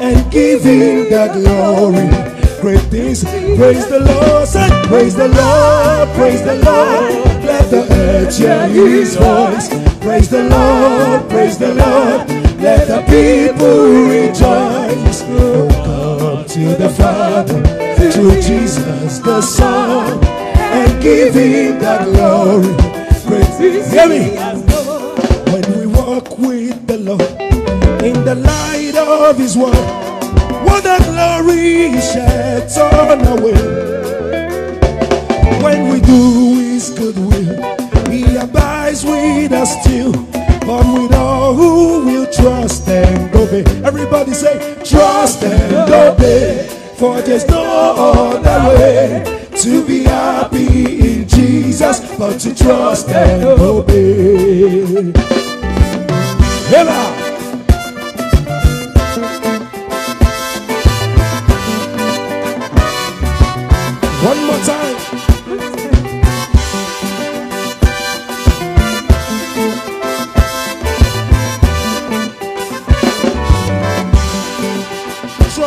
[SPEAKER 1] and give him the glory great things. Praise the Lord, say, praise the Lord, praise the Lord. Let the earth hear his voice. Praise the Lord, praise the Lord. Let the people rejoice. Come to the Father, to Jesus the Son, and give Him the glory. Praise Hear me. When we walk with the Lord in the light of His word, what a glory He sheds on our way. When we do His good will, He abides with us still. But we know who will trust and obey. Everybody say, trust and obey. For there's no other way to be happy in Jesus, but to trust and obey. Hello.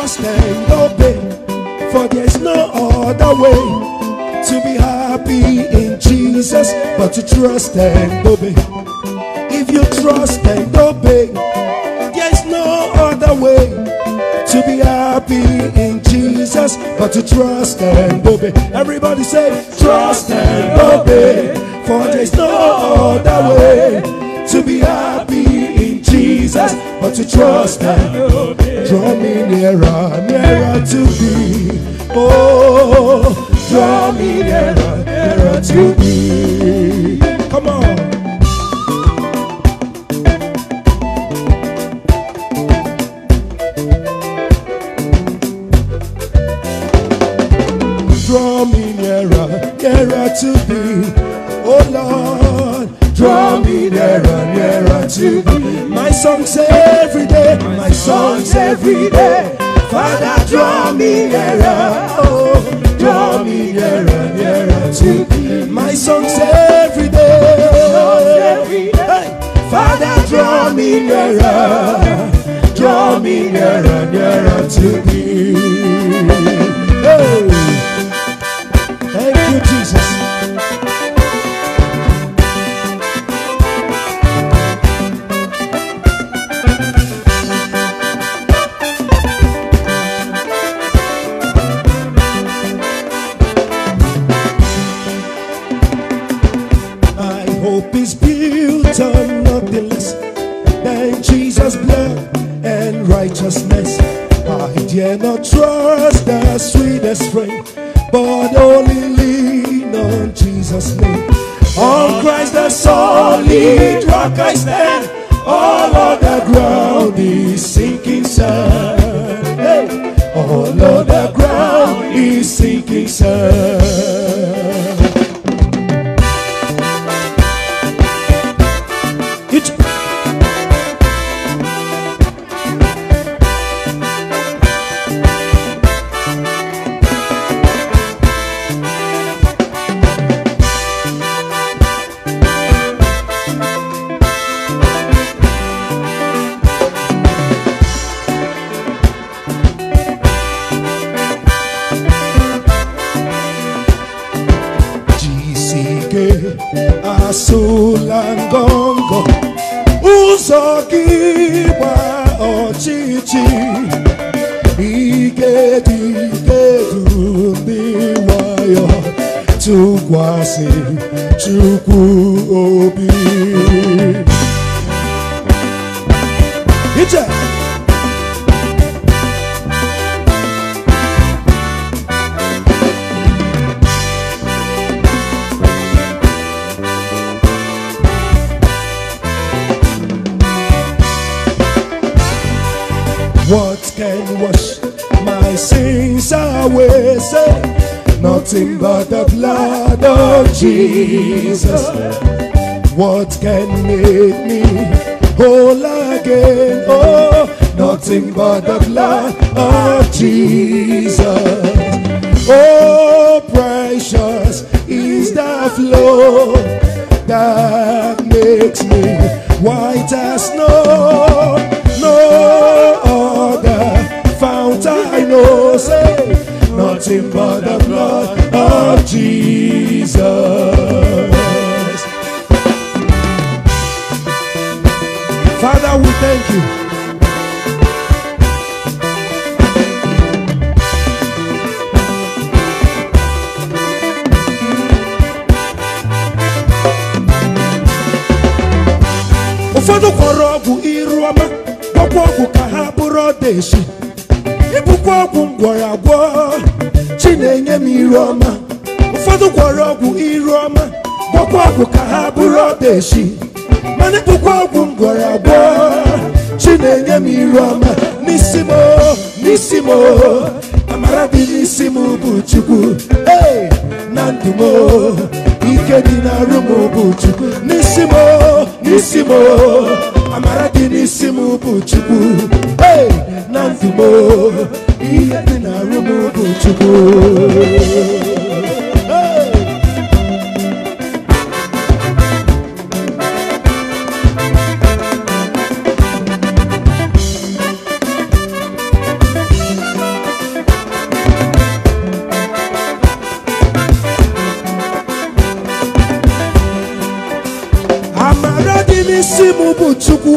[SPEAKER 1] must and obey, for there's no other way to be happy in Jesus but to trust and obey. If you trust and obey, there's no other way to be happy in Jesus but to trust and obey. Everybody say, trust and obey, for there's no other way to be happy Jesus, but to trust and obey. Draw me nearer, nearer to thee. Oh, draw me nearer, nearer to thee. Come on. songs every day, my songs every day. Father, draw me nearer, oh, draw me nearer, nearer to thee. My songs every day. Father, draw me nearer, draw me nearer, nearer to thee. Hey. Christ ụfọdụ kwọrọ ọgwụ iru ọma gwọkwa ọgwụ ka ha bụrụ ọdaeshi ibukwa ọgwụ ngwọrọ agwọ chi na-enye m iru ọma ụfọdụ kwọrọ ọgwụ iru ọma ọgwụ ka ha bụrụ chi na-enye m iru ọma n'isi m n'isi m amara dị n'isi m bụ chukwu na ndụ ike dị na m bụ chukwu n'isi m n'isi m amara dị n'isi m bụ na ndụ m ihe dị na m bụ bụ chukwu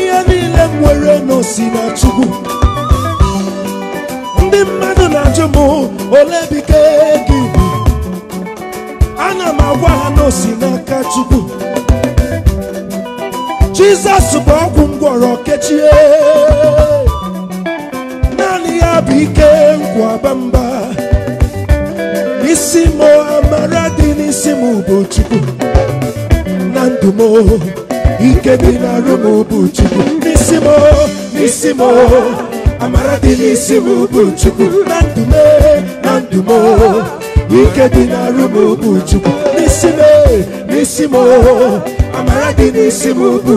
[SPEAKER 1] ihe niile m nwere n'osi na chukwu ndị mmadụ na-ajụ m ole bike gị ana m agwa ha n'osi n'aka chukwu jizọs bụ ọgwụ m gwọrọ kechie naanị ya bụ ike nkwaba mba isi m amara dị n'isi m bụ chukwu na ndụ m ike dị na m bụ chukwu n'isi m n'isi m amara dị n'isi m bụ chukwu na ndụ m na ndụ m ike dị na m bụ chukwu n'isi m n'isi amara dị n'isi m bụ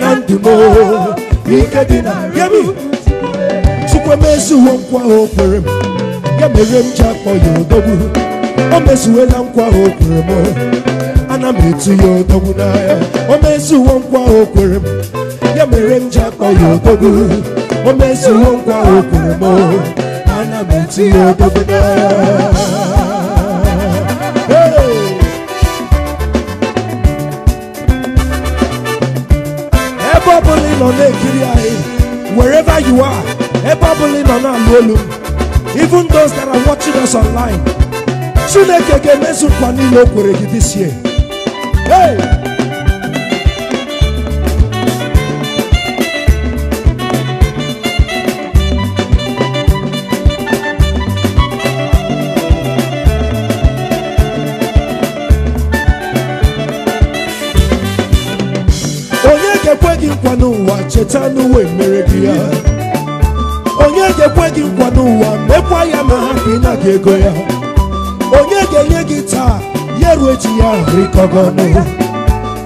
[SPEAKER 1] na ndụ m ike dị na ya m chukwu emezuwo nkwa o m nkwa na metu ya odogwu n'ahịa o mezuwo nkwa o m ya mere m ji akpọ ya odogwu o mezuwo nkwa o kwere m ana m eti ya odogwu n'ahịa ebe ọbụla ị nọ na-ekiri anyị wherever you are ebe ọbụla ị nọ na-alụ olu even those that are watching us online chineke ga-emezu nkwa niile o kwere gị this year cheta n'ụwa mere gị ya onye ga-ekwe gị nkwa n'ụwa mekwa ya ma ha ka ị ego ya onye ga-enye gị taa onye ruo echi ya rikọgọnụ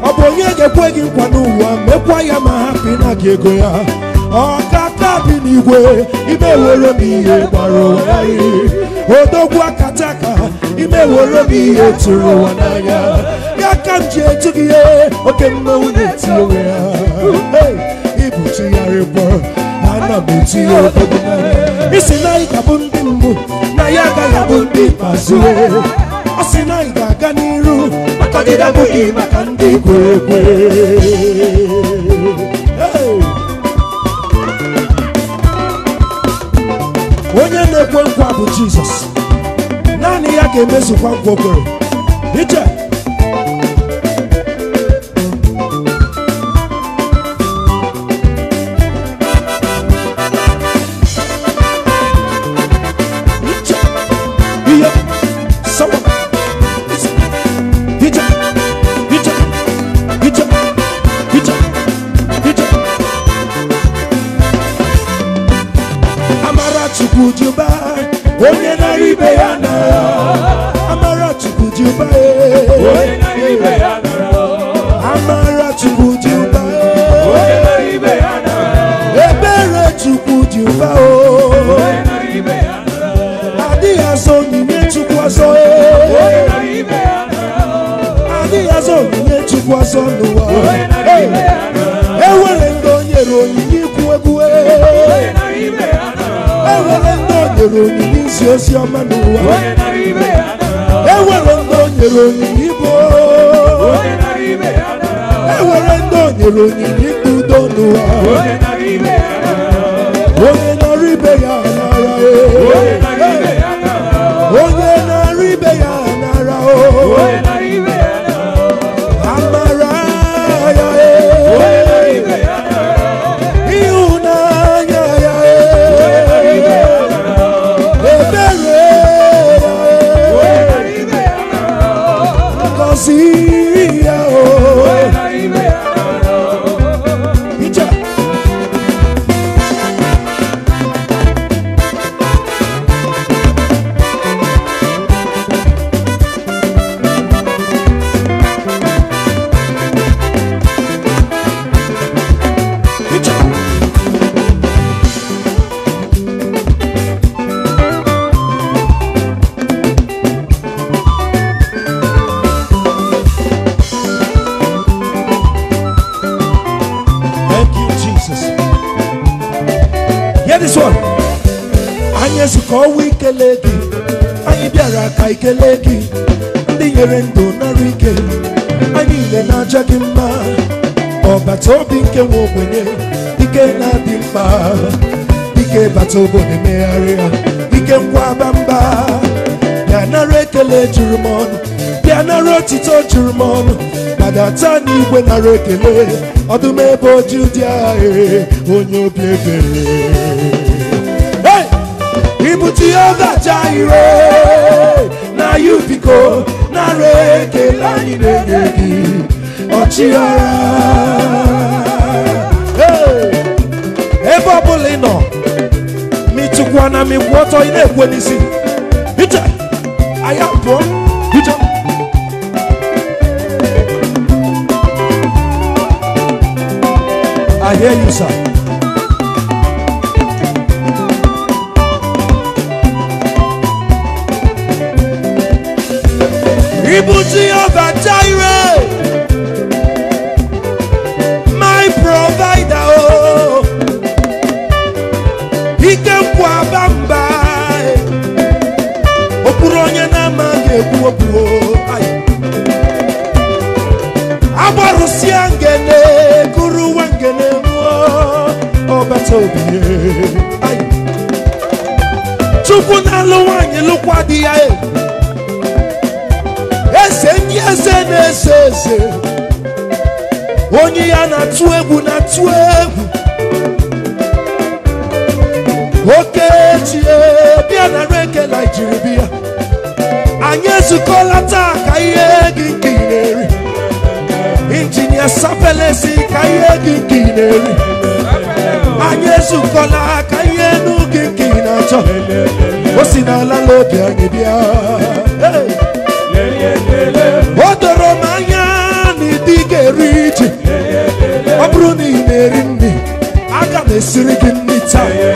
[SPEAKER 1] ọ bụ onye ga-ekwe gị nkwa n'ụwa mekwa ya ma hapụ na gị ego ya ọkata bi n'igwe ime were m ihe gbara ụwa n'ahịrị odogwu akata ka ime were m ihe tụrụ ụwa n'anya ya ka m ji etu gị ihe oke mmanwụ na ya onwe ya ibụchigharịbọ ana m etinye obodo isi na anyị ga-abụ ndị mbụ na ya agaghị abụ ndị ikpeazụ ọ sị na anyị na-aga n'iru maka gị abụghị maka ndị kwere onye na-ekwe nkwa bụ Jizọs naanị ya ga-emezukwa nkwa iche Chukwu dị ụba onye nara ibe ya nara amara Chukwu dị ụba ibe ya amara Chukwu dị ụba ibe ya nara ebere Chukwu dị ụba ibe ya nara adịghị azọ onyinye Chukwu azọ ibe ya nara adịghị azọ onyinye Chukwu azọ n'ụwa onye nara ibe ya nara ewere ndị o onyinye Oh, enwere ka ikele gị ndị nyere ndụ nara ike anyị niile na-aja gị mma ọbata obi nke nwe ogbenye ike na-adị mkpa dike bata obodo megharịa dike ngwa bamba bịa nara ekele juru m ọnụ bịa nara otito juru m ọnụ madata n'igwe nara ekele ọdụm ebe oji dị agha e, onye obi ebere ibute ihe ọdacha ahịrị anyị biko nara ekele anyị na-enye gị ọchịagha ebe ọbụla ịnọ nọ na mịkwụ ọtọ ị na-ekwe n'isi bije aya pụọ bije I hear you, sir. Ibuti Jehovah Jireh, my provider. Oh, ikekwa bamba, e. okpuru onye na-amaghị ekwu okwu. Agbarụsịa ngene, guruwa ngene mụọ, ọbata obi. E. Chukwu na-alụ nwaanyị lụkwa eze ndị eze na-eze eze onye ya na-atụ egwu na-atụ egwu okechi e, bịa na reke naijiria anyị ezukọla taa ka ihe gị nke ị na-eri injinia sapelesi ka ihe gị nke ị na-eri anyị ezukọla ka ihe enu gị nke ị na-achọ o si n'ala n'obi anyị bịa o doro m anya na ịdị ga-eri iji ọ bụrụ na ị na-eri nri aga m esiri gị nri taa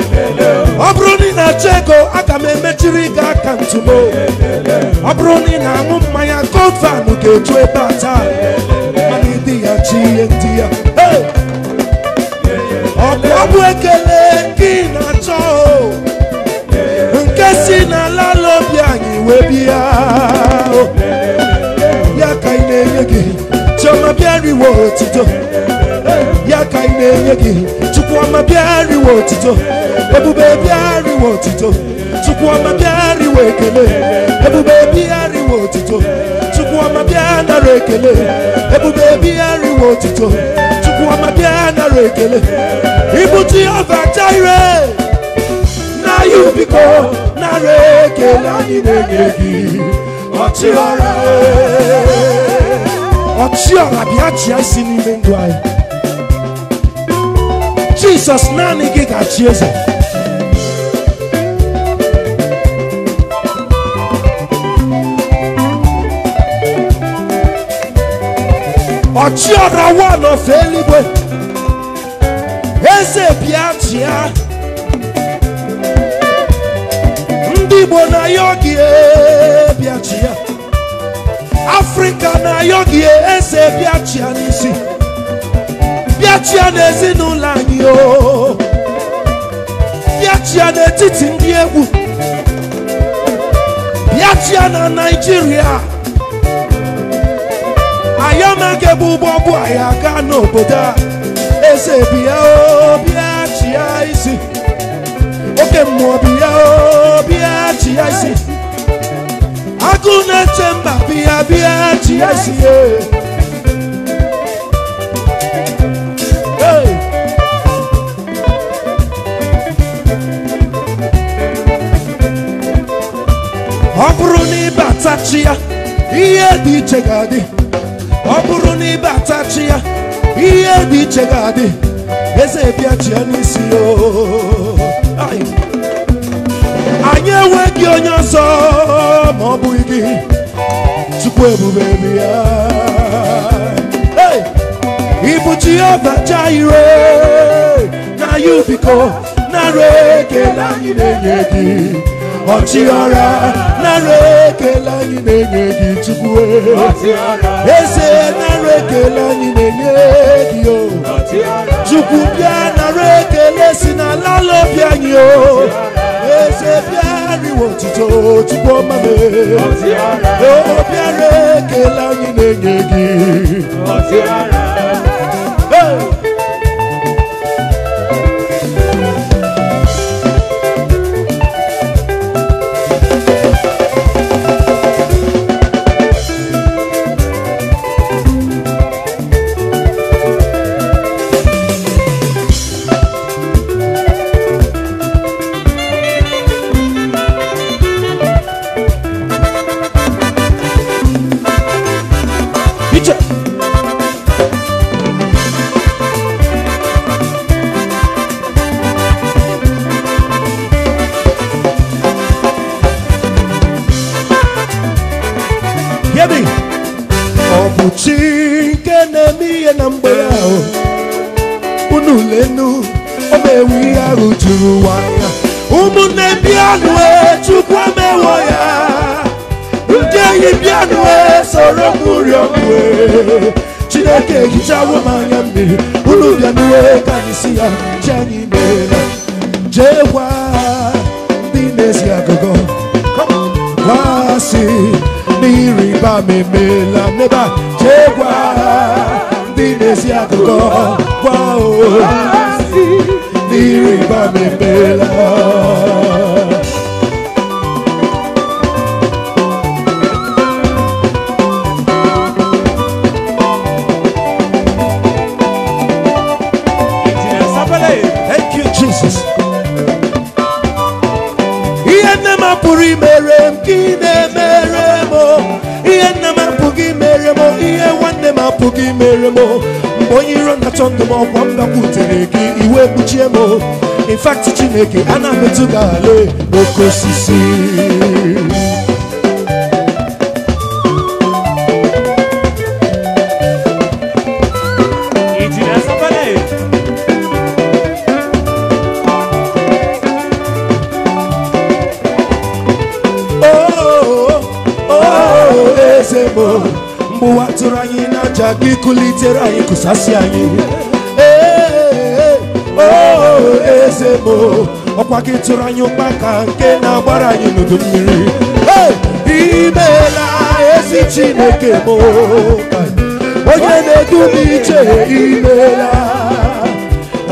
[SPEAKER 1] ọ bụrụ na ị na-achọ ego aga m emechiri gị aka ntụmo ọ bụrụ na ị na-aṅụ mmanya gọvan ga-eju ebe a taa mana ịdị ya chi ihe ndị ya ọ bụ ekele gị na-achọ nke si n'ala obi anyị wee bịa riwe otito ya ka ị na-enye gị Chukwuoma bịa otito ebube bịa otito ebube otito bịa otito ekele na ya biko nara ekele anyị na-enye gị ọchịara ɔkye ɔrabea kyea si n'ime ndụ anyị jisọs naanị gị ga-achị eze ɔkye ɔrawa n'ofe eluigwe eze bịa chịa ndị igbo na ya oge bịa chịa Africa na-ayọ gị eze bịachịa n'isi bịachịa n'ezinụlọ anyị o bịachịa n'etiti ndị egwu bịachịa na naijiria ayọmage bụ ụgbọ bụ anyị aga n'obodo a eze bịa o bịachịa isi oke mmụọ bịa o bịachịa isi agụ na-eche mba bịa bịa ji ezie ọ bụrụ na ịbata chi ya ihe dị iche ga-adị ọ bụrụ na ịbata chi ya ihe dị iche ga-adị eze bịa chi ya n'isi o na gị onye ọzọ ma ọ bụghị gị tupu ebube bi ya ịbụ Jehova ire na ya narị nara ekele anyị na-enye gị ọchịọra narị ekele anyị na-enye gị tupu e. eze narị ekele anyị na-enye gị o tupu bịa narị ekele si n'ala lobi anyị o eze bịa ariwo otito chukwu omame obi ara ekele anyị na-enye gị na-ehicha wụmanya mmiri unu bịa n'uwe ka anyị si ya cheanyị meela jee gwa ndị na-esi agụgọ gwa si n'ịrịba m me n'ebe a jee gwa ndị go. agụgọ gwa o n'ịrịba m emeela gị mere m mgbe onye iro na-achọ ndụ m ọkwa m gakwutere gị iwe kpuchie m in chineke ana m etu ga-ala oke osisi gị kụlitere anyị kụsasị anyị eze bụ ọkwa gị tụrụ anyị ụkpa ka nke na-agbara anyị n'udu mmiri imeela ezi chineke m onye na-edu m iche imeela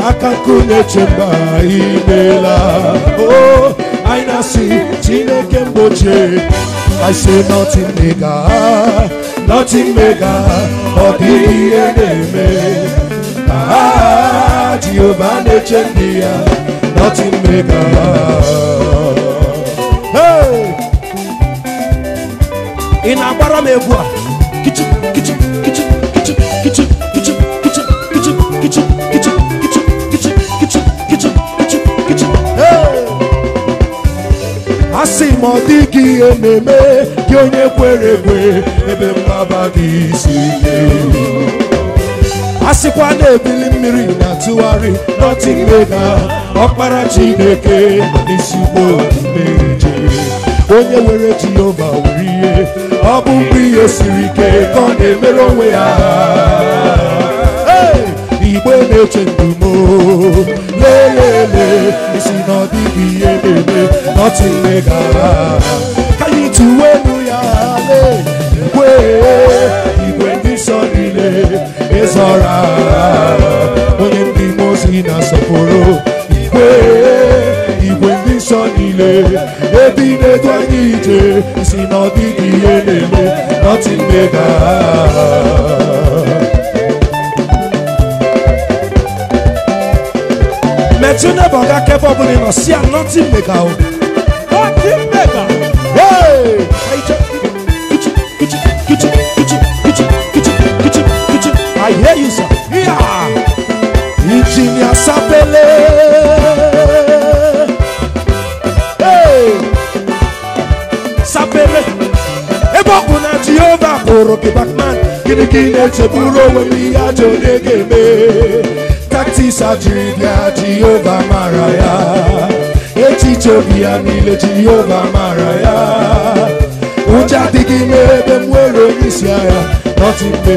[SPEAKER 1] aka nkụ na-eche mba imeela anyị oh, na-asị chineke mgbochie I say nothing nigga nothing mega ọ dịghị ihe na-eme aa jehova na-eche ndị ya nothing mega ị na-agbara m a kichu kichu kichu kichu kichu kichu kichu kichu kichu kichu kichu kichu kichu kichu kichu kichu asị m ọ dịghị ihe na gị onye kwere ekwe ebe mgbaba dị isi a sịkwa na-ebili mmiri na-atụgharị nọtịmega ọkpara Chineke n'isiugbo mmeri onye were Jehova were ihe ọ bụ mgbe ihe siri ike ka ọ na-emere onwe ya igbe na-eche ndumo lee ya ele isi na ọ ihe na-eme nọtịmega ka anyị tụwe igwe ndị nsọ niile ịzọra onye ndị mmụọ ozi na-asọpụrụ igwe igwe si na ọdịdị ihe na-eme nothing mega si ya nothing délé. Sapele, ebe ọ bụ na Jehova kpụrụ gị Batman, gịnị ka ị na-echegburu onwe m ihe ajọ onye ga-eme? Taktis ajiri bịa Jehova mara ya, echiche obi ya niile Jehova mara ya. Ụjọ adịghị n'ebe m were onye isi agha, nọtị mgbe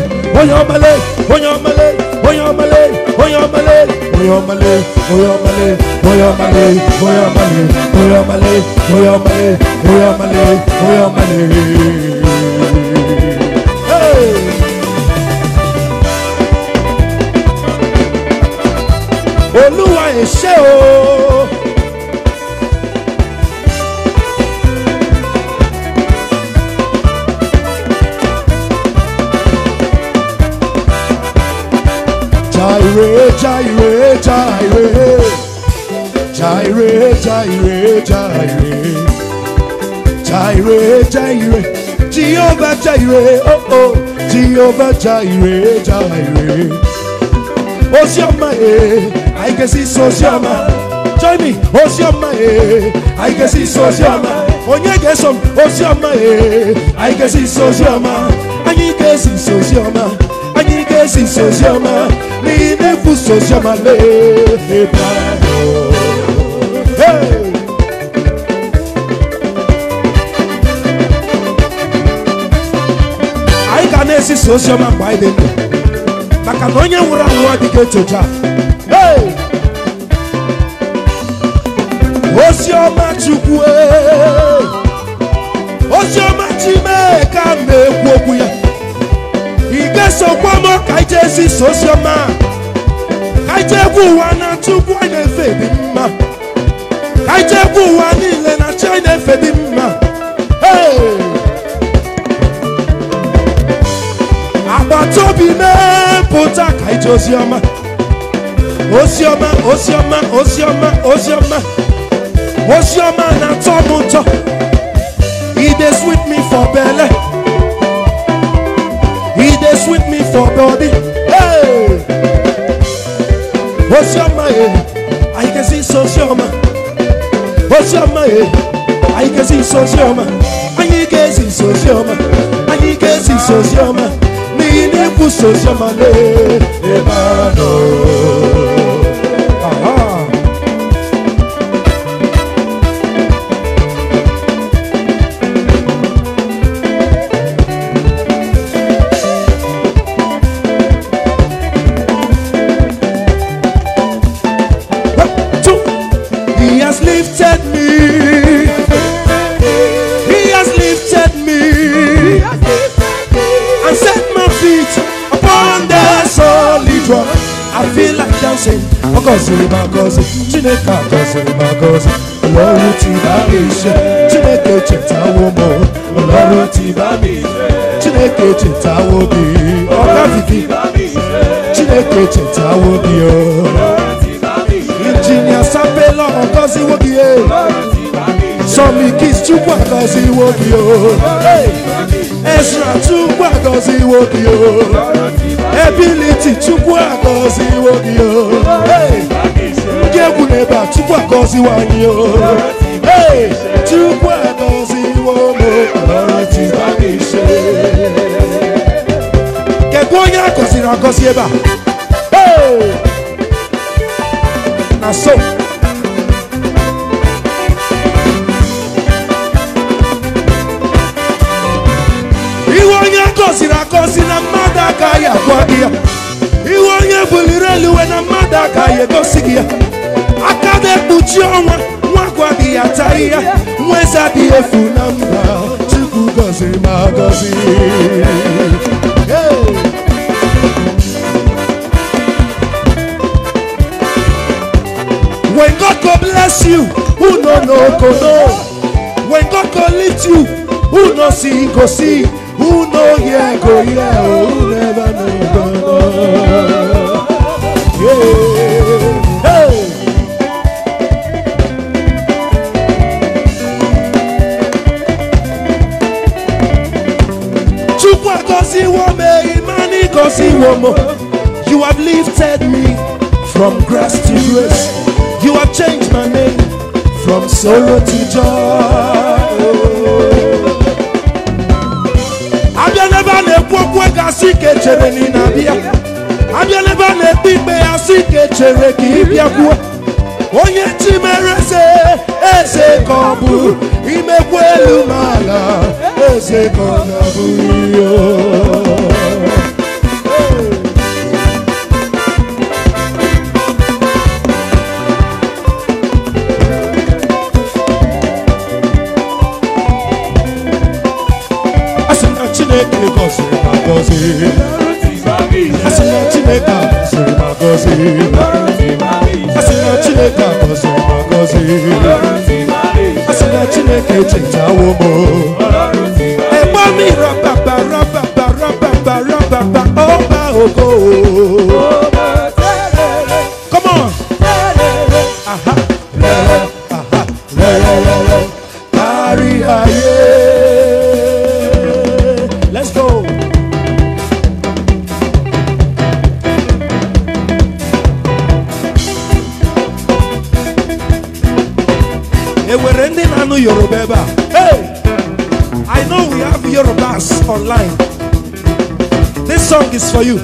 [SPEAKER 1] oyomale oyomale oyomale oyomale oyomale oyomale oyomale oyomale. olúwa ẹ o. Jaire Jaire Jaire Jehovah Jaire oh oh Jehovah Jaire Jaire Osioma eh I can see Osioma join me Osioma eh I can see Osioma onye ga Osioma eh I can see Osioma anyị si esi Osioma anyị si esi Osioma n'ime efu Osioma le. ebe ahụ esi ozi ọma mgbe anyị dị maka na onye nwụrụ anwụ adịghị etocha ozi ọma chukwu ozi ọma chimeka na-ekwu okwu ya ị ga-esokwa m ka anyị jee zisa ozi ọma ka anyị jee ụwa na tupu anyị na-efe dị mma ka anyị jee ụwa niile na chi anyị na-efe dị mma ee atobi mepụta ka ije oziọma oziọma oziọma oziọma oziọma oziọma na-atọ m ụtọ e dey sweet me for belle e dey sweet me for body hey oziọma e eh, anyị ga-esi nso oziọma oziọma e eh, anyị ga nso oziọma anyị ga-esi nso oziọma anyị ga-esi nso oziọma fini pour ce jamais Emmanuel gọziri ma gọzi chineke a gọziri ma gọzi ọlọrụ tibami ise chineke chetawo m ọlọrụ tibami ise chineke chetawo gị ọkaziki chineke chetawo gị injinia sapela ọgọziwo gị sọmikis chukwu agọziwo gị ezra chukwu agọziwo gị ebiliti chukwu agọziwo gị o ndị egwu na ebe a chukwu agọziwo anyị o chukwu agọziwo m kedu onye agọziri agọzi ebe a na so iwe onye agọziri agọzi na mma aka ya kwa gị ya iwe onye buliri eluwe na mmadụ aka ya egosi gị ya aka na-ekpuchi ọnwa nwa gwa gị ya taa ya nwa eze adịghị efu na mba chukwu gọziri ma gọzi When God go bless you, who no no go know? When God go lift you, who no see go see? Who know yeah go yeah, never know go Yeah. Hey. You have lifted me from grass to grace. You have changed my name from sorrow to joy. na-ekwu e asị ka echere na ị na-abịa abịa n'ebe a na-ekpe ikpe ya asị ka echere ka ị bịakwuo onye chi mere eze eze ka ọ bụ imekwa elu ma ala eze ka ọ na-abụghị chineke gọziri ma gọzie asị na chineke gọziri ma gọzie asị na chineke gọziri ma gọzie asị na chineke chetawo m egbe mi rababa rababa rababa rababa ọba ogo is for you.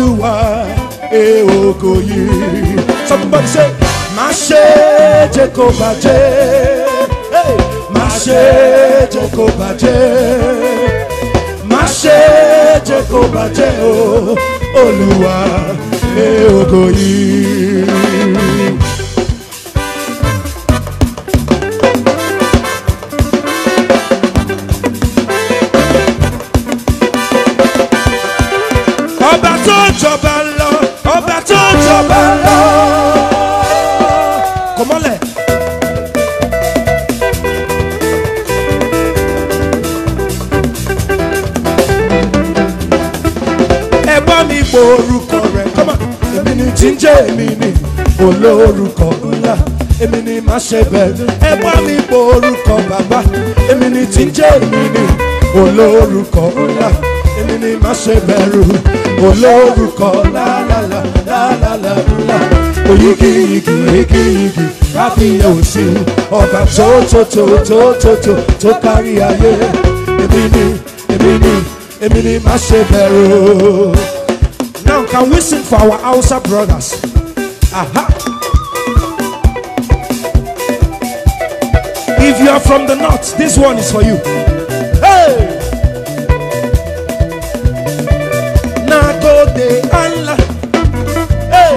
[SPEAKER 1] Olúwa ẹ e ògo yìí. Somebody say, má ṣe jẹ́ kó bàjẹ́. Má ṣe jẹ́ kó bàjẹ́. Má ṣe jẹ́ kó bàjẹ́ o, Olúwa ẹ e ògo yìí. pé èmi ni olórúkọ ńlá èmi ni má ṣe bẹ̀rù ẹ bá mi bo orúkọ bàbá èmi ni tí ń jẹ́ èmi ni olórúkọ ńlá èmi ni má ṣe bẹ̀rù olórúkọ lálàlà lálàlà ńlá oyigi igi igi igi káfíyàn òsì ọba tó tó tó tó tó tó tó kárí ayé èmi ni èmi ni èmi ni má ṣe bẹ̀rù. Now can we sing for our Hausa brothers? Aha. If you are from the north, this one is for you. Hey! de Allah. Hey!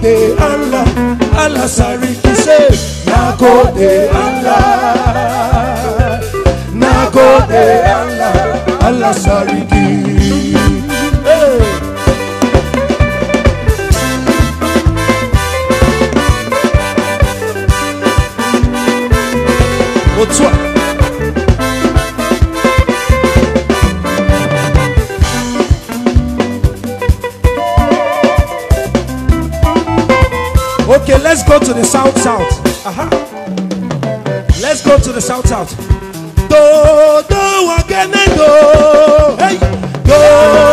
[SPEAKER 1] de Allah. Allah Sariki say, de Allah. de Allah. Allah Sariki. toa okay let's go to the south south aha let's go to the south south do do wakene do hey do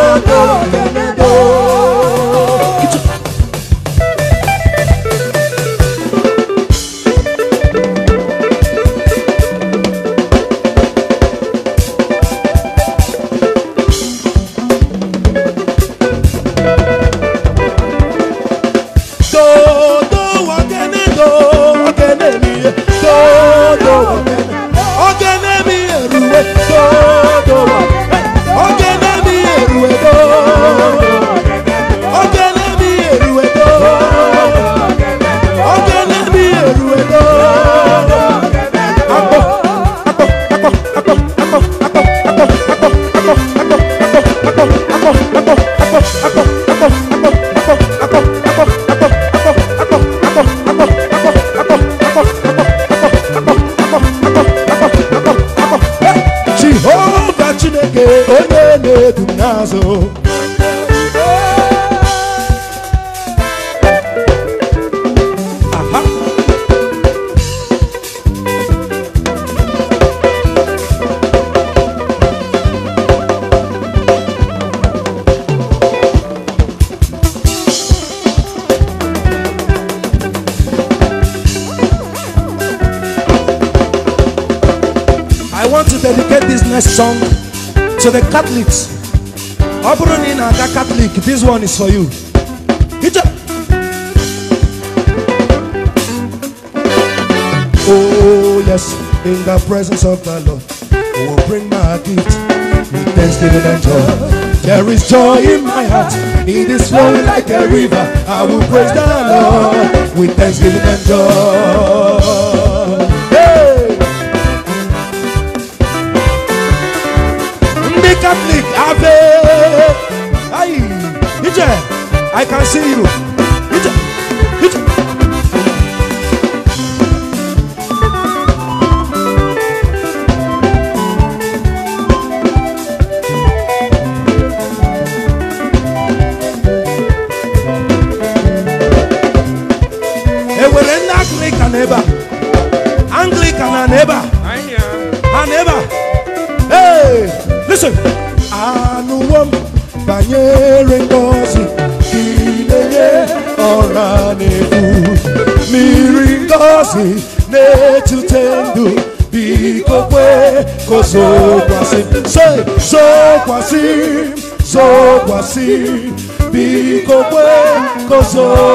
[SPEAKER 1] Catholics I'm running i a cat. Catholic this one is for you Hit Oh yes, in the presence of the Lord I will bring my gift with thanksgiving and joy There is joy in my heart It is flowing like a river I will praise the Lord with thanksgiving and joy Aye, Ije, I can see you. Ije, Ije. zokwasị say zokwasị zokwasị biko kwe kozo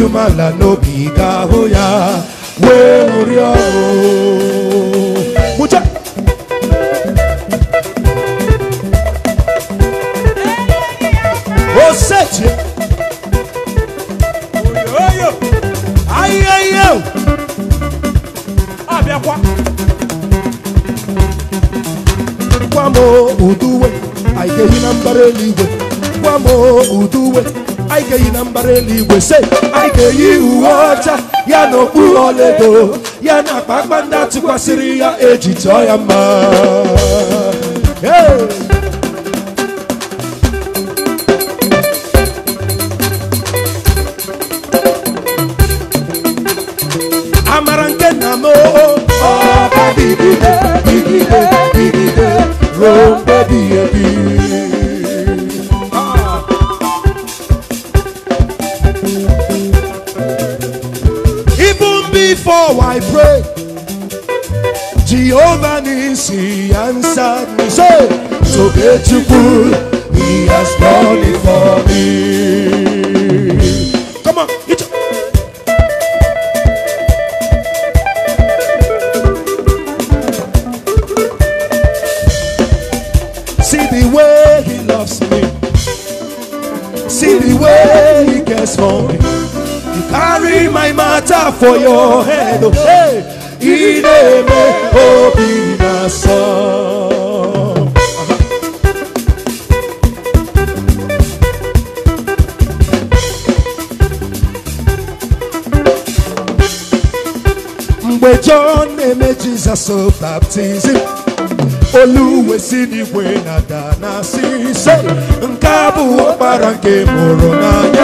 [SPEAKER 1] you, might I know n'eluigwe se anyị ga-eyi uwe ọcha ya na okpu ọlaedo ya na akpa ndị atụkwasịrị ya eji ọya ya mma for your hand. Oh, hey, in a mgbe John na-eme Jizọs baptizim oluwesinigwe na-ada na asị ise nke nke mụrụ n'anya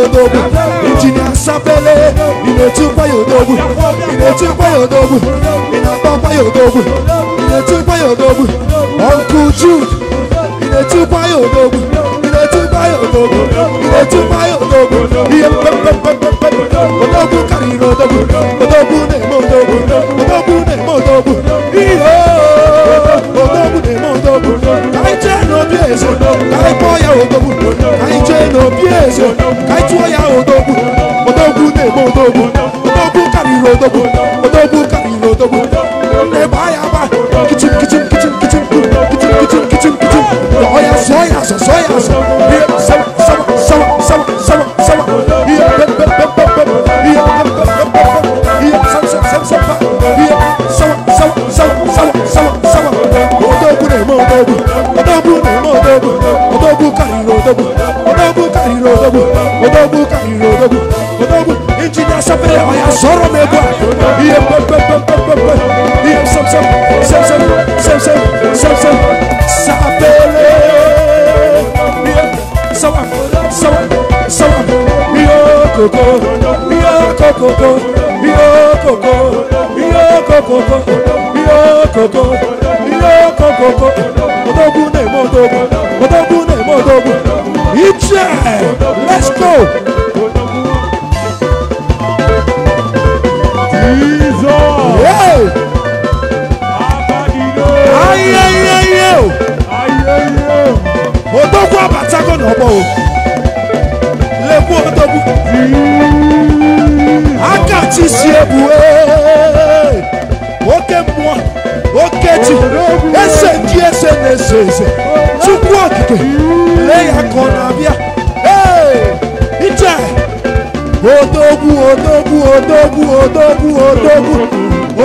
[SPEAKER 1] yodogu injinia sapele ị na-etikwa yodogu ị na-etikwa yodogu ị na-akpakwa yodogu ị na-etikwa yodogu ọnkụ jud ị na-etikwa yodogu ị na-etikwa yodogu ị na-etikwa yodogu ihe mkpekpekpekpekpe odogwu karịrị odogwu odogwu na-eme odogwu odogwu na-eme odogwu ihe odogwu na-eme odogwu ka anyị jee n'obi eze ka anyị kpọọ ya odogwu bí èso káìtú ọ̀yà òdòkú òdòkú nègbò òdòkú òdòkú kàrìrì òdòkú òdòkú kàrìrì òdòkú nne báyà bá kìtìm kìtìm kìtìm kìtìm kìtìm kìtìm kìtìm kìtìm ọ̀yà sọ ọ̀yà sọ sọ ọ̀yà sọ iye sábà sábà sábà sábà sábà sábà iye pẹpẹpẹpẹ iye pẹpẹpẹpẹ iye sábà sábà sábà iye sábà sábà sábà sábà sábà òdòkú nègbò òdòkú òdòkú nègbò òdòkú òdòkú kàrìrì òdòkú kairo dogu odogu kairo dogu odogu inji na sapere oya soro mebwa iye pep pep pep pep pep pep iye sam sam sam sam sam sam sam sam sapele iye sawa sawa sawa iyo koko iyo koko iyo koko iyo koko iyo koko iyo koko odogu na emo odogu odogu na emo odogu Israel. Let's go. Jesus. Yeah. Odogwu abatago n'ọgbọ o. Lekwu odogwu. Aka chi si ebu ee. Oke mmụọ okechi ese ndị ese na-ese ese tupu okike lee ya ka ọ na-abịa iche odogwu odogwu odogwu odogwu odogwu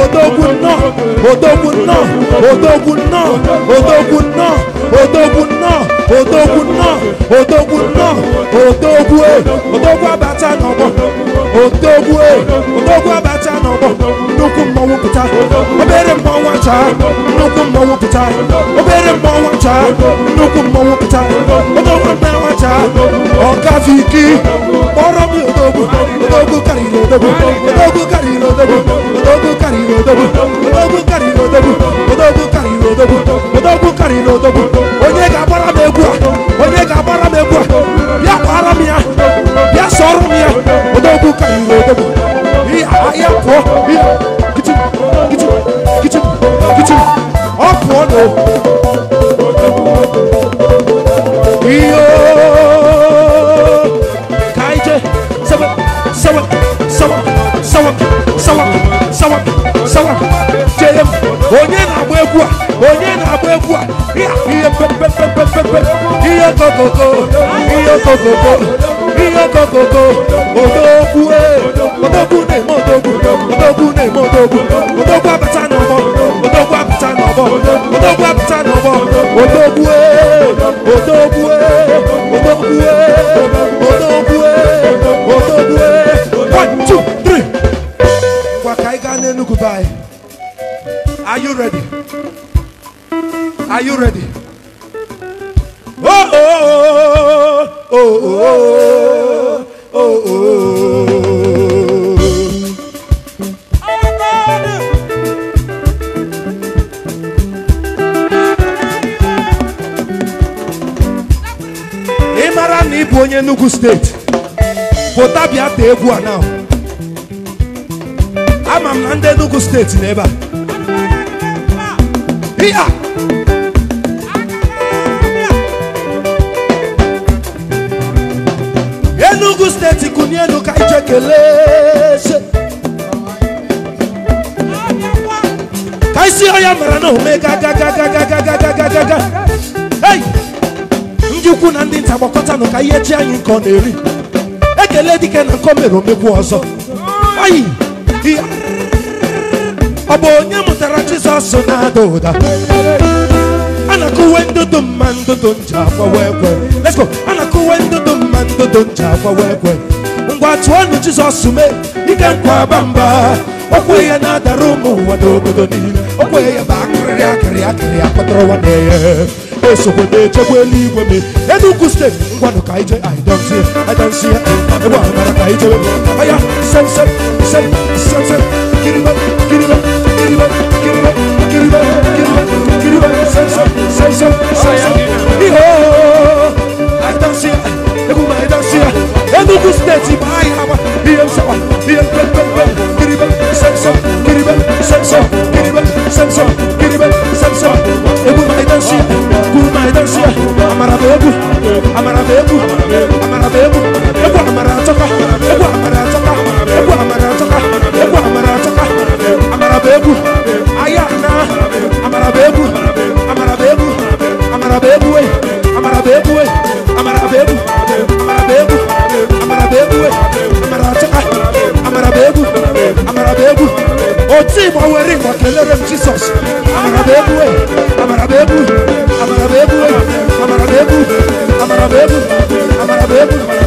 [SPEAKER 1] odogwu nnọọ odogwu nnọọ odogwu nnọọ odogwu nnọọ odogwu nnọọ odogwu nnọọ odogwu nnọọ odogwu e. odogwu abata n'ọgbọ odogwu e, odogwu abata pụta obere mmọnwụ acha nnukwu mmọnwụ pụta obere mmọnwụ acha nnukwu mmọnwụ pụta odogwu mmanwụ acha ọkafe ike kpọrọ m odogwu odogwu karịrị odogwu odogwu karịrị odogwu odogwu karịrị odogwu odogwu karịrị odogwu odogwu karịrị odogwu odogwu karịrị odogwu onye ga-agbara m egwu a onye ga-agbara m egwu a bịa kwara m ya bịa sọrọ m ya odogwu karịrị odogwu ihe ahịa pụọ Iyo, odogwu ne eh. modogu odogwu ne modogu odogwu abata na ọmọ odogwu apụta n'ọbọ odogwu apụta n'ọbọ odogwue odogwue odogwue odogwue odogwue one two three ngwa ka anyị gaa n'enugwu be anyị are you ready are you ready oh oh oh oh oh oh ka egwu a na ama m na ndị Enugu steeti n'ebe a Enugu steeti kụnye elu ka ije kelee ka isi ọya mara na ome ga ga ndị ukwu na ndị nta gbakọtanụ ka ihe chi anyị nke ọ na-eri ekele dịka na nkọ mere omegwu ọzọ oyi ọ bụ onye mụtara Jizọs na-ada ụda a na-akụwe ndụdụ mma ndụdụ nje akwawa ekwe let's go a na-akụwe ndụdụ mma ndụdụ nje akwawa ekwe ngwa tụọ tụọnụ Jizọs mee ike nkwa bamba okwe ya na-adara ụmụ ụwa n'obodo niile okwe ya bụ akịrị akịrị akịrị akpatara ụwa na-eye esokwe na-echekwa eluigwe m enugu steeti Everyone who kaije, I don't see it, I don't see it. Everyone who kaije, aya, sel sel sel sel sel. Kiriba, kiriba, kiriba, kiriba, kiriba, kiriba, kiriba, sel sel sel sel sel sel. Iho, I don't see it. Everyone I don't see it. Enugu state, I have a BM sawa, BM bel bel bel. Kiriba, sel sel, kiriba, sel sel, kiriba, sel sel, kiriba, sel sel. Everyone I don't see it. Everyone I don't see it. Amarabu. amara m egwu amara m egwu egwu amara atọka egwu amara atọka egwu amara atọka egwu amara atọka amara m egwu aya na amara m egwu amara m egwu amara m egwu amara m egwu amara m egwu amara m egwu amara m egwu amara atọka amara m egwu amara m egwu oti gbanwere ịgba kelere m Jizọs amara m egwu amara m egwu amara m egwu amara m Amarabebos, amarabebos,